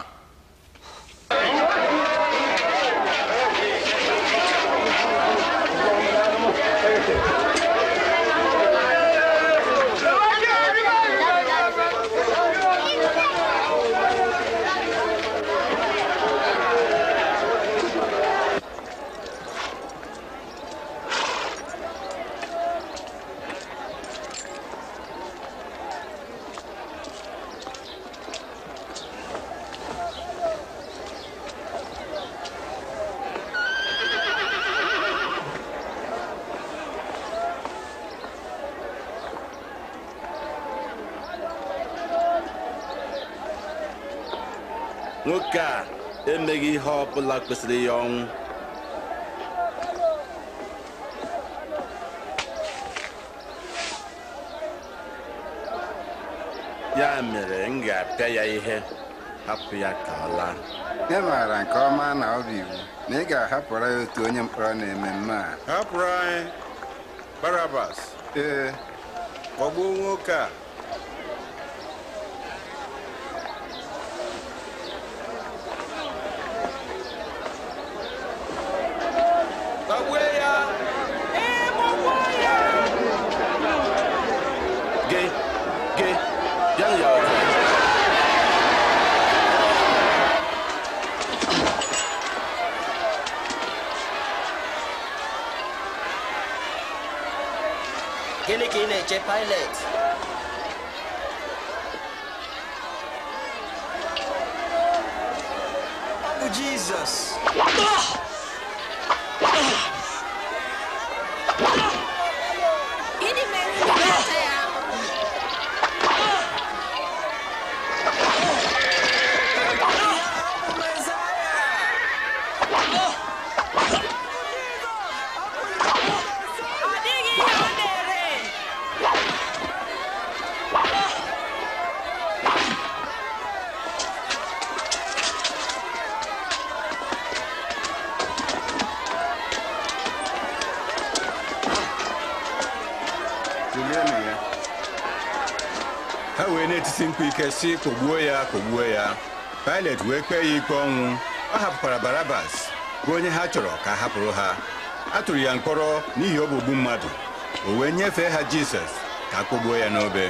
زندگی ها بلک بسریان ya mere m ga-apịa ya ihe ị maara nke ọma na ọ bụ iwu na ị ga-ahapụra barabas ee sị kpọgbuo ya kpọgbuo ya Pilet wee kpee ya ikpe ọnwụ ọ hapụkwara Barabas bụ onye ha chọrọ ka a hapụrụ ha a tụrụ ya mkpọrọ n'ihi ọgbụgbu mmadụ o wee nyefee ha Jisọs ka a kpọgbuo ya n'obe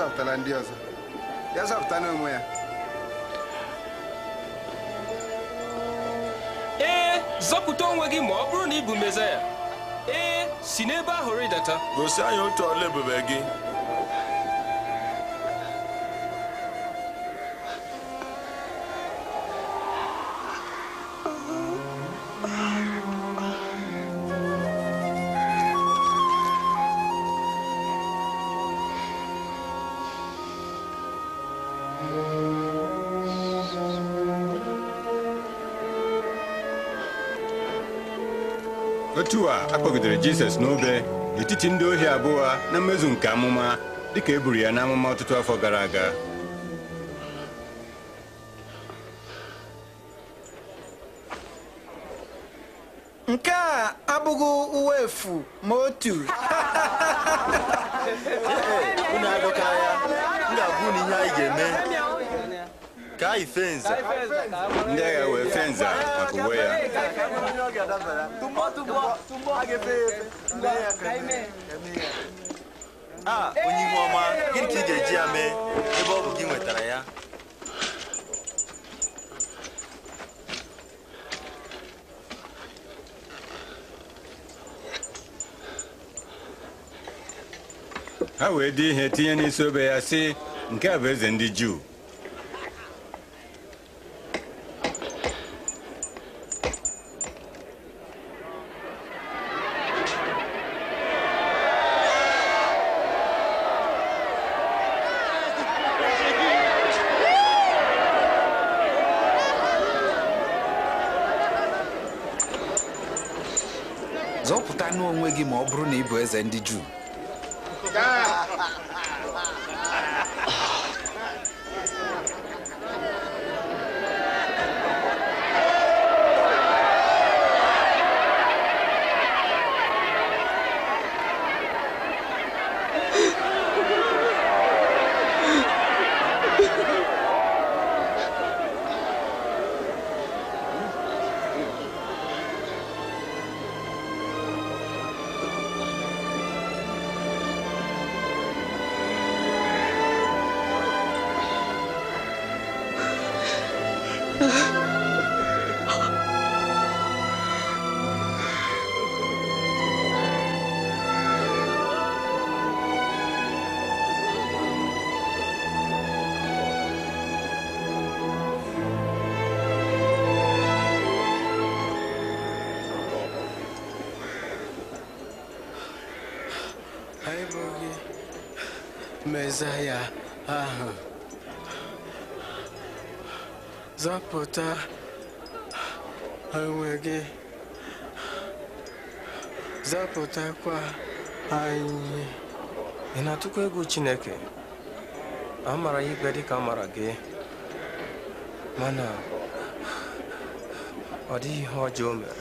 zọpụtara ndị ọzọ ya zọpụta n'onwe ya ee eh, zọpụta onwe gị ma ọ bụrụ na ị bụ ya ee eh, si n'ebe ahụ rịdata gosi anyị otu ọla ebube gị otu a akpọgidere Jizọs n'obe n'etiti ndị ohi abụọ na mmezu nke amụma dịka e buru ya n'amụma ọtụtụ afọ gara aga nke a abụghị uwe efu ma otu ihe anyị ga-eme ka anyị agha wee fenza onwe ya a onye ihu ọma gịnị ka ị ga-eji ya mee ebe ọ bụ gị nwetara ya ha wee dị ihe tinye n'isi obe ya si nke a bụ eze ndị juu ndị you? Eze ya ahụ zọpụta onwe gị zọpụtakwa anyị ị na-atụkwa egwu Chineke a mara ya ikpe dịka a mara gị mana ọ dịghị ihe ọjọọ mere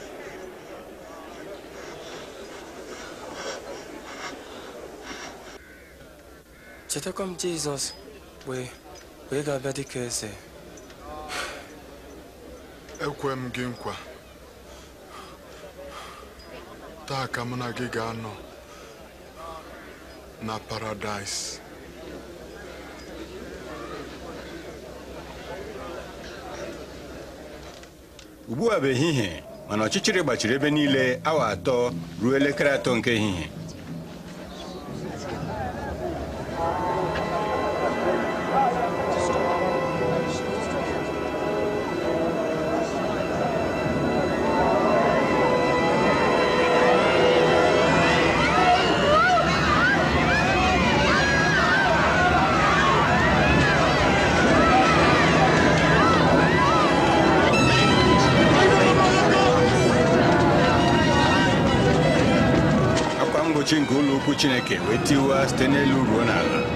chetakwa m Jizọs wee wee ga-abịa dịka eze ekwe m gị nkwa taa ka na gị ga-anọ na paradaịs ugbu a bụ ehihie mana ọchịchịrị gbachiri ebe niile awa atọ ruo elekere atọ nke ehihie Stewart tener Lugonada.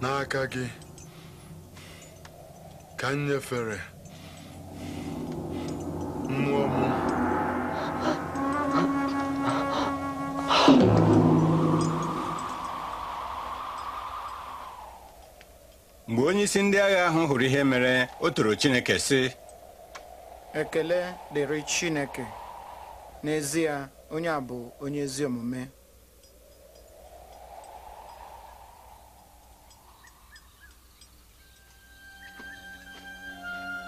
Na aka gị ka m onyeisi ndị agha ahụ hụrụ ihe mere o toro Chineke sị ekele dịrị Chineke n'ezie onye a bụ onye ezi omume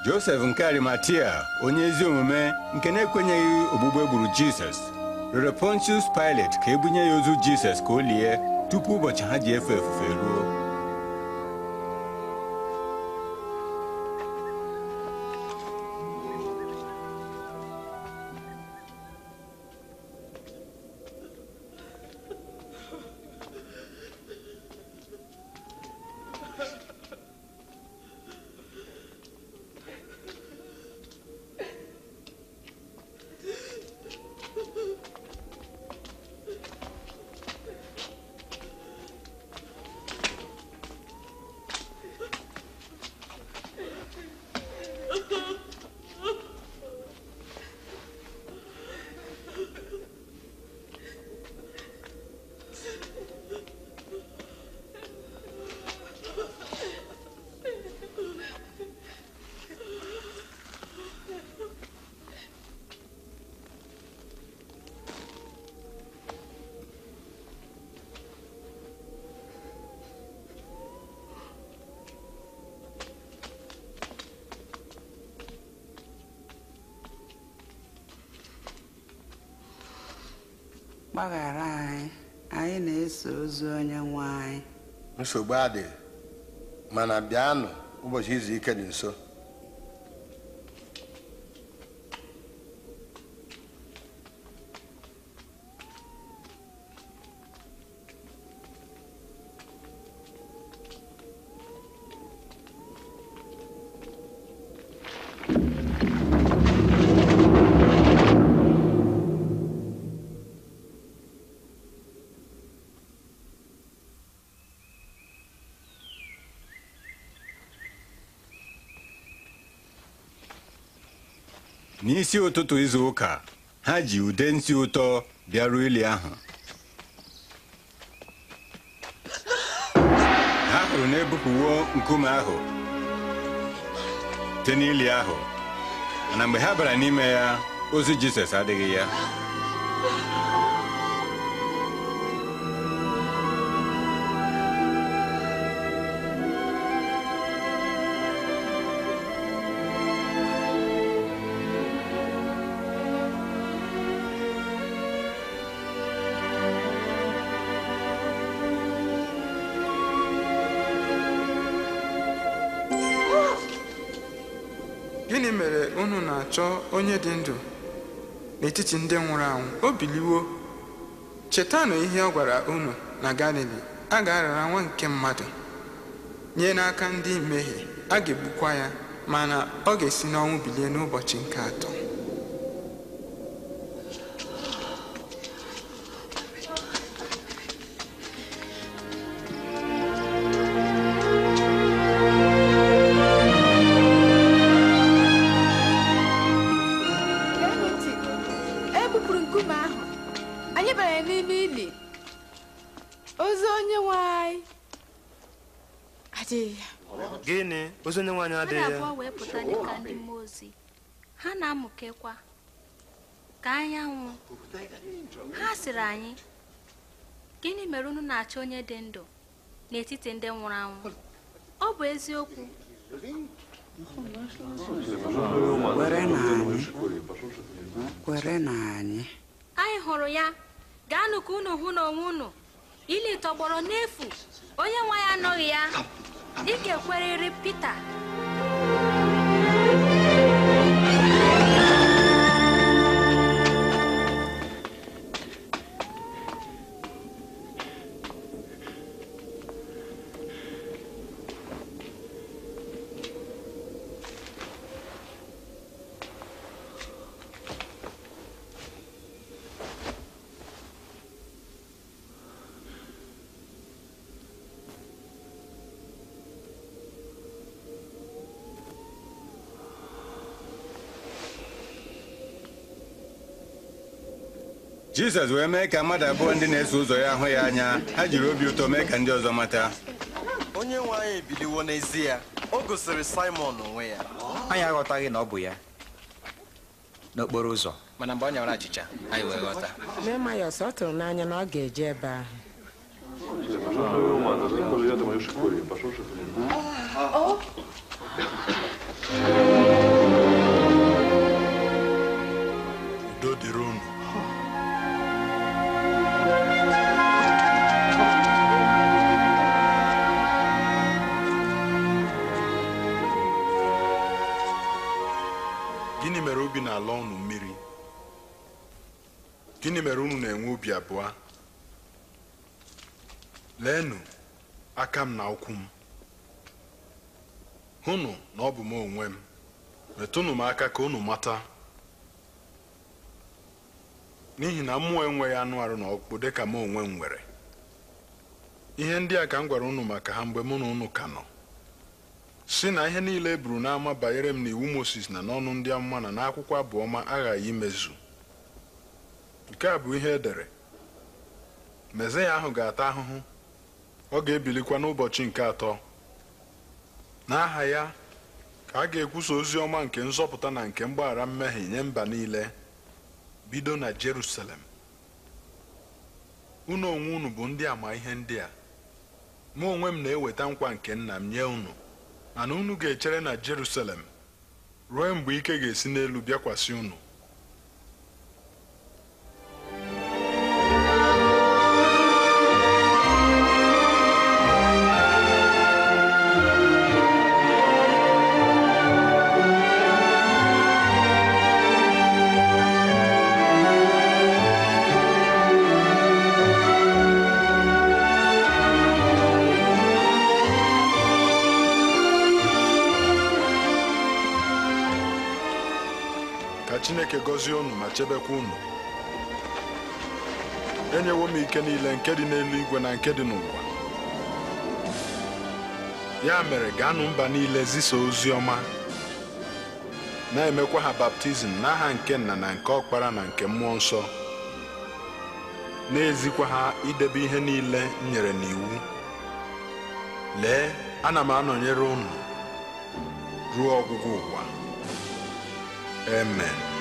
Josef nke Arimatia onye ezi omume nke na-ekwenyeghị ogbugbe egburu Jizọs rere Pontius Pilate ka ebunye ya ozu Jizọs ka o lie tupu ụbọchị ha ji efe efufe ruo gbaghara anyị anyị na-eso ozu onye nwe anyị nsogbu adịghị mana bịanụ ụbọchị izu ike dị nso n'isi ụtụtụ izu ụka ha ji ude nsị ụtọ bịarụ ili ahụ ha hụrụ na-ebupụwo nkume ahụ dị n'ili ahụ mana mgbe ha bara n'ime ya ozi Jizọs adịghị ya chọọ onye dị ndụ n'etiti ndị nwụrụ anwụ o biliwo chetanụ ihe ọ gwara unu na galili a ga-arara nwa nke mmadụ nye n'aka ndị mmehie a ga-egbukwa ya mana ọ ga-esi n'ọnwụ bilie n'ụbọchị nke atọ anyị gịnị mere unu na-achọ onye dị ndụ n'etiti ndị nwụrụ anwụ ọ bụ eziokwu kwere na anyị anyị hụrụ ya gaanụ ka unu hụ n'onwe unu ili tọgbọrọ n'efu onye nwa ya anọghị ya ike ga pete Pita Jizọs wee mee ka mmadụ abụọ ndị na-eso ụzọ ya hụ ya anya ha jiri obi ụtọ mee ka ndị ọzọ mata onye nwe anyị ebiliwo n'ezie o gosiri Simon onwe ya anyị aghọtaghị na ọ bụ ya n'okporo ụzọ mana mgbe ọ nyawara achịcha anyị wee ọ tụrụ n'anya na ọ ga-eje ebe ahụ gịnị mere ubi na-ala ọnụ mmiri gịnị mere unu na-enwe obi abụọ leenụ aka m na ụkwụ m hụnụ na ọ bụ m onwe m metụnụ m aka ka unu mata n'ihi na mmụọ enweghị anụ arụ na dị ka m onwe m nwere ihe ndị a ka m gwara unu maka ha mgbe mụ na unu ka nọ si na ihe niile e buru n'ama banyere m n'iwu Moses na n'ọnụ ndị amụma na n'akwụkwọ abụọma aghaghị imezu nke a bụ ihe e dere ya ahụ ga-ata ahụhụ ọ ga-ebilikwa n'ụbọchị nke atọ n'aha ya ka a ga-ekwusa ozi ọma nke nzọpụta na nke mgbaghara mmehie nye mba niile bido na Jerusalem unu onwe unu bụ ndị ama ihe ndị a mụ onwe m na-eweta nkwa nke nna m nye unu ana unu ga-echere na Jerusalem ruo mgbe ike ga-esi n'elu bịakwasị unu gọzie unu ma chebekwa unu enyewo m ike niile nke dị n'eluigwe na nke dị n'ụwa ya mere gaanụ mba niile zisa ozi ọma na-emekwa ha baptizim n'aha nke nna na nke ọkpara na nke mmụọ nsọ na-ezikwa ha idebe ihe niile m nyere n'iwu lee ana m anọnyere unu ruo ọgwụgwụ ụwa amen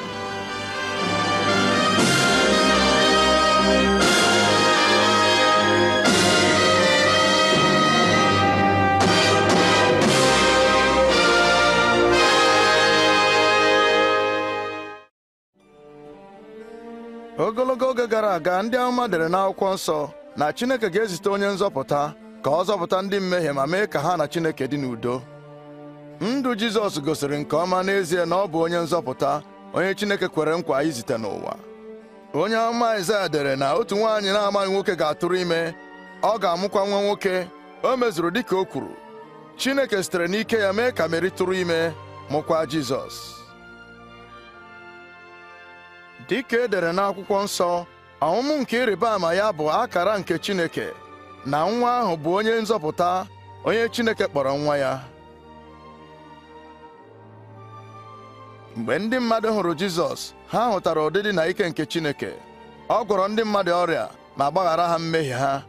ogologo oge gara aga ndị amụma dere n'akwụkwọ nsọ na Chineke ga-ezite onye nzọpụta ka ọ zọpụta ndị mmehie ma mee ka ha na Chineke dị n'udo ndụ Jizọs gosiri nke ọma n'ezie na ọ bụ onye nzọpụta onye Chineke kwere nkwa izite n'ụwa onye ọma Aịzaya dere na otu nwaanyị na-amaghị nwoke ga-atụrụ ime ọ ga-amụkwa nwa nwoke o mezuru dịka o kwuru Chineke sitere n'ike ya mee ka Meri tụrụ ime mụkwa Jizọs dịka e dere n'akwụkwọ nsọ ọmụmụ nke ịrịba ama ya bụ akara nke Chineke na nwa ahụ bụ onye nzọpụta onye Chineke kpọrọ nwa ya mgbe ndị mmadụ hụrụ Jizọs ha hụtara ụdịdị na ike nke Chineke ọ gwọrọ ndị mmadụ ọrịa ma gbaghara ha mmehie ha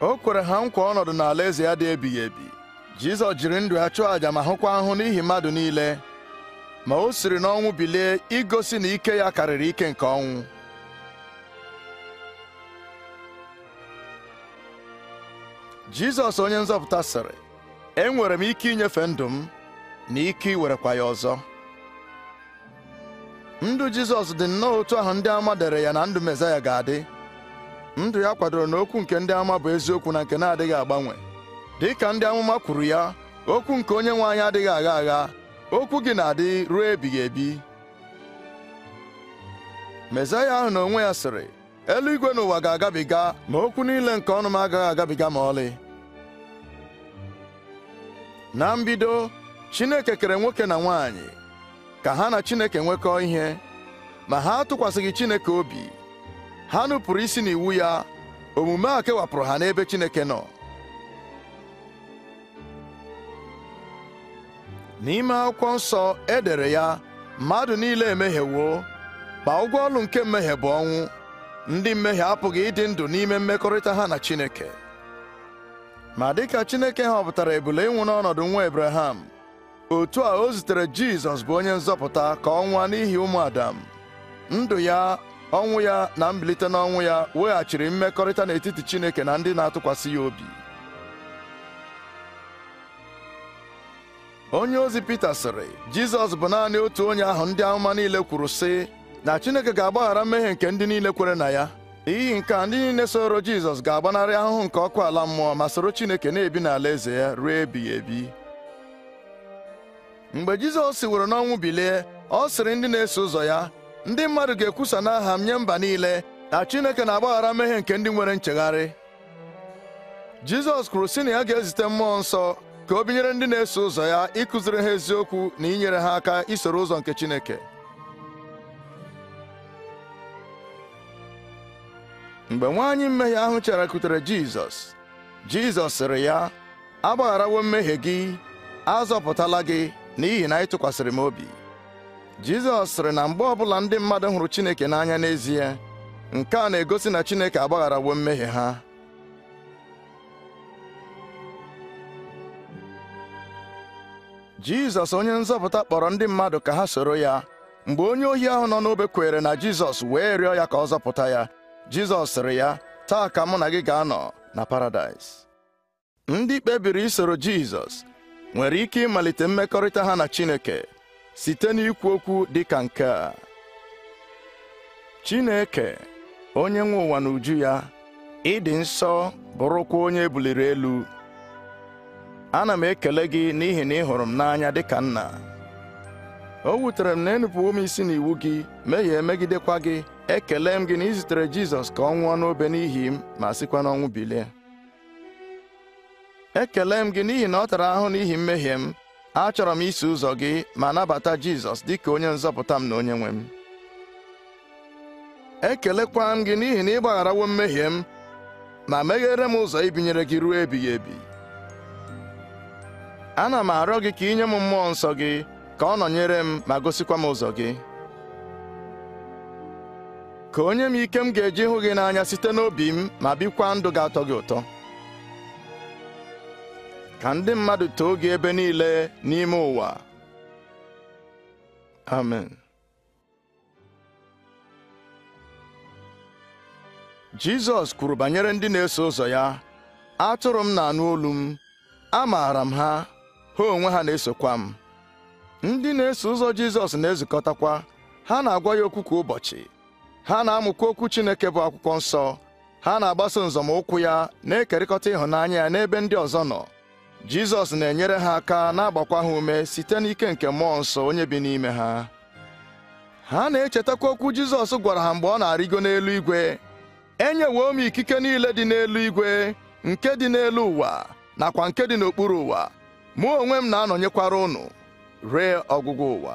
o kwere ha nkwa ọnọdụ n'ala eze ya dị ebighị ebi Jizọs jiri ndụ ya chụọ àjà ma hụkwa ahụ n'ihi mmadụ niile ma o siri n'ọnwụ bilie igosi na ike ya karịrị ike nke ọnwụ Jizọs onye nzọpụta sịrị enwere m ike inyefe ndụ m na ike iwerekwa ya ọzọ ndụ jizọs dị nnọọ otu ahụ ndị ama dere ya na ndụ mesaya ga-adị ndụ ya kwadoro na okwu nke ndị ama bụ eziokwu na nke na-adịghị agbanwe dị ka ndị amụma kwuru ya okwu nke onye nwe anyị adịghị agha agha okwu gị na-adị ruo ebighị ebi mesaya ahụ na onwe ya sịrị eluigwe n'ụwa ga-agabiga ma okwu niile nke ọnụ m agaghị agabiga ma ọlị na mbido Chineke kere nwoke na nwaanyị ka ha na Chineke nwekọọ ihe ma ha atụkwasịghị Chineke obi ha nụpụrụ isi n'iwu ya omume a kewapụrụ ha n'ebe Chineke nọ n'ime akwụkwọ nsọ edere ya mmadụ niile emehiewo ma ụgwọ ọlụ nke mmehie bụ ọnwụ ndị mmehie apụghị ịdị ndụ n'ime mmekọrịta ha na Chineke ma dịka Chineke họpụtara ebule ịnwụ n'ọnọdụ nwa ebraham otu a o zitere Jizọs bụ onye nzọpụta ka ọ nwụọ n'ihi ụmụ Adam ndụ ya ọnwụ ya na mbilite n'ọnwụ ya weghachiri mmekọrịta n'etiti Chineke na ndị na-atụkwasị ya obi onye ozi Pita sịrị Jizọs bụ naanị otu onye ahụ ndị amụma niile kwuru sị na Chineke ga-agbaghara mmehie nke ndị niile kwere na ya n'ihi nke a ndị niile soro Jizọs ga-agbanarị ahụhụ nke ọkụ ala mmụọ ma soro Chineke na-ebi n'alaeze ya ruo ebighị ebi mgbe Jizọs siworo n'ọnwụ bilie ọ sịrị ndị na-eso ụzọ ya ndị mmadụ ga-ekwusa n'aha m nye mba niile na Chineke na-agbaghara mmehie nke ndị nwere nchegharị Jizọs kwuru sị na ya ga-ezite mmụọ nsọ ka o binyere ndị na-eso ụzọ ya ịkụziri ha eziokwu na inyere ha aka isoro ụzọ nke Chineke mgbe nwaanyị mmehie ahụ cherekutere Jizọs Jizọs sịrị ya agbagharawo mmehie gị azọpụtala gị n'ihi na anyị tụkwasịrị m obi Jizọs sịrị na mgbe ọbụla ndị mmadụ hụrụ Chineke n'anya n'ezie nke a na-egosi na Chineke agbagharawo mmehie ha Jizọs onye nzọpụta kpọrọ ndị mmadụ ka ha soro ya mgbe onye ohi ahụ nọ n'obe kwere na Jizọs wee rịọ ya ka ọ zọpụta ya Jizọs sịrị ya taa ka mụ na gị ga-anọ na paradaịs ndị kpebiri isoro Jizọs nwere ike ịmalite mmekọrịta ha na Chineke site n'ikwu okwu dị ka nke a Chineke onye nwe ụwa na uju ya ịdị nsọ bụrụkwa onye ebuliri elu ana m ekele gị n'ihi na ị hụrụ m n'anya dịka nna o wutere m na enupụwo m isi n'iwu gị mehie megidekwa gị ekele m gị na izitere Jizọs ka ọ nwụọ n'obe n'ihi m ma sikwa n'ọnwụ bilie ekele m gị n'ihi na ọ tara ahụ n'ihi mmehie m achọrọ m iso ụzọ gị ma nabata Jizọs dị ka onye nzọpụta m na onye nwe m ekelekwa m gị n'ihi na ịgbagharawo mmehie m ma meghere m ụzọ ibinyere gị ruo ebighị ebi ana m arịọ gị ka ị nye m mmụọ nsọ gị ka ọ nọnyere m ma gosikwa m ụzọ gị ka onye m ike m ga-eji hụ gị n'anya site n'obi m ma bikwa ndụ ga-atọ gị ụtọ ka ndị mmadụ too gị ebe niile n'ime ụwa amen jizọs kwuru banyere ndị na-eso ụzọ ya atụrụ m na-anụ olu m amaara m ha ha onwe ha na-esokwa m ndị na-eso ụzọ jizọs na-ezukọtakwa ha na-agwa ya okwu kwa ụbọchị ha na-amụkwa okwu chineke bụ akwụkwọ nsọ ha na-agbaso nzọmụkwụ ya na-ekerịkọta ịhụnanya ya n'ebe ndị ọzọ nọ Jizọs na-enyere ha aka na-agbakwa ha ume site n'ike nke mmụọ nsọ onye bi n'ime ha ha na-echetakwa okwu Jizọs gwara ha mgbe ọ na-arịgo igwe, enyewo m ikike niile dị n'elu igwe nke dị n'elu ụwa nakwa nke dị n'okpuru ụwa mụ onwe m na-anọnyekwara ụnụ, ree ọgwụgwụ ụwa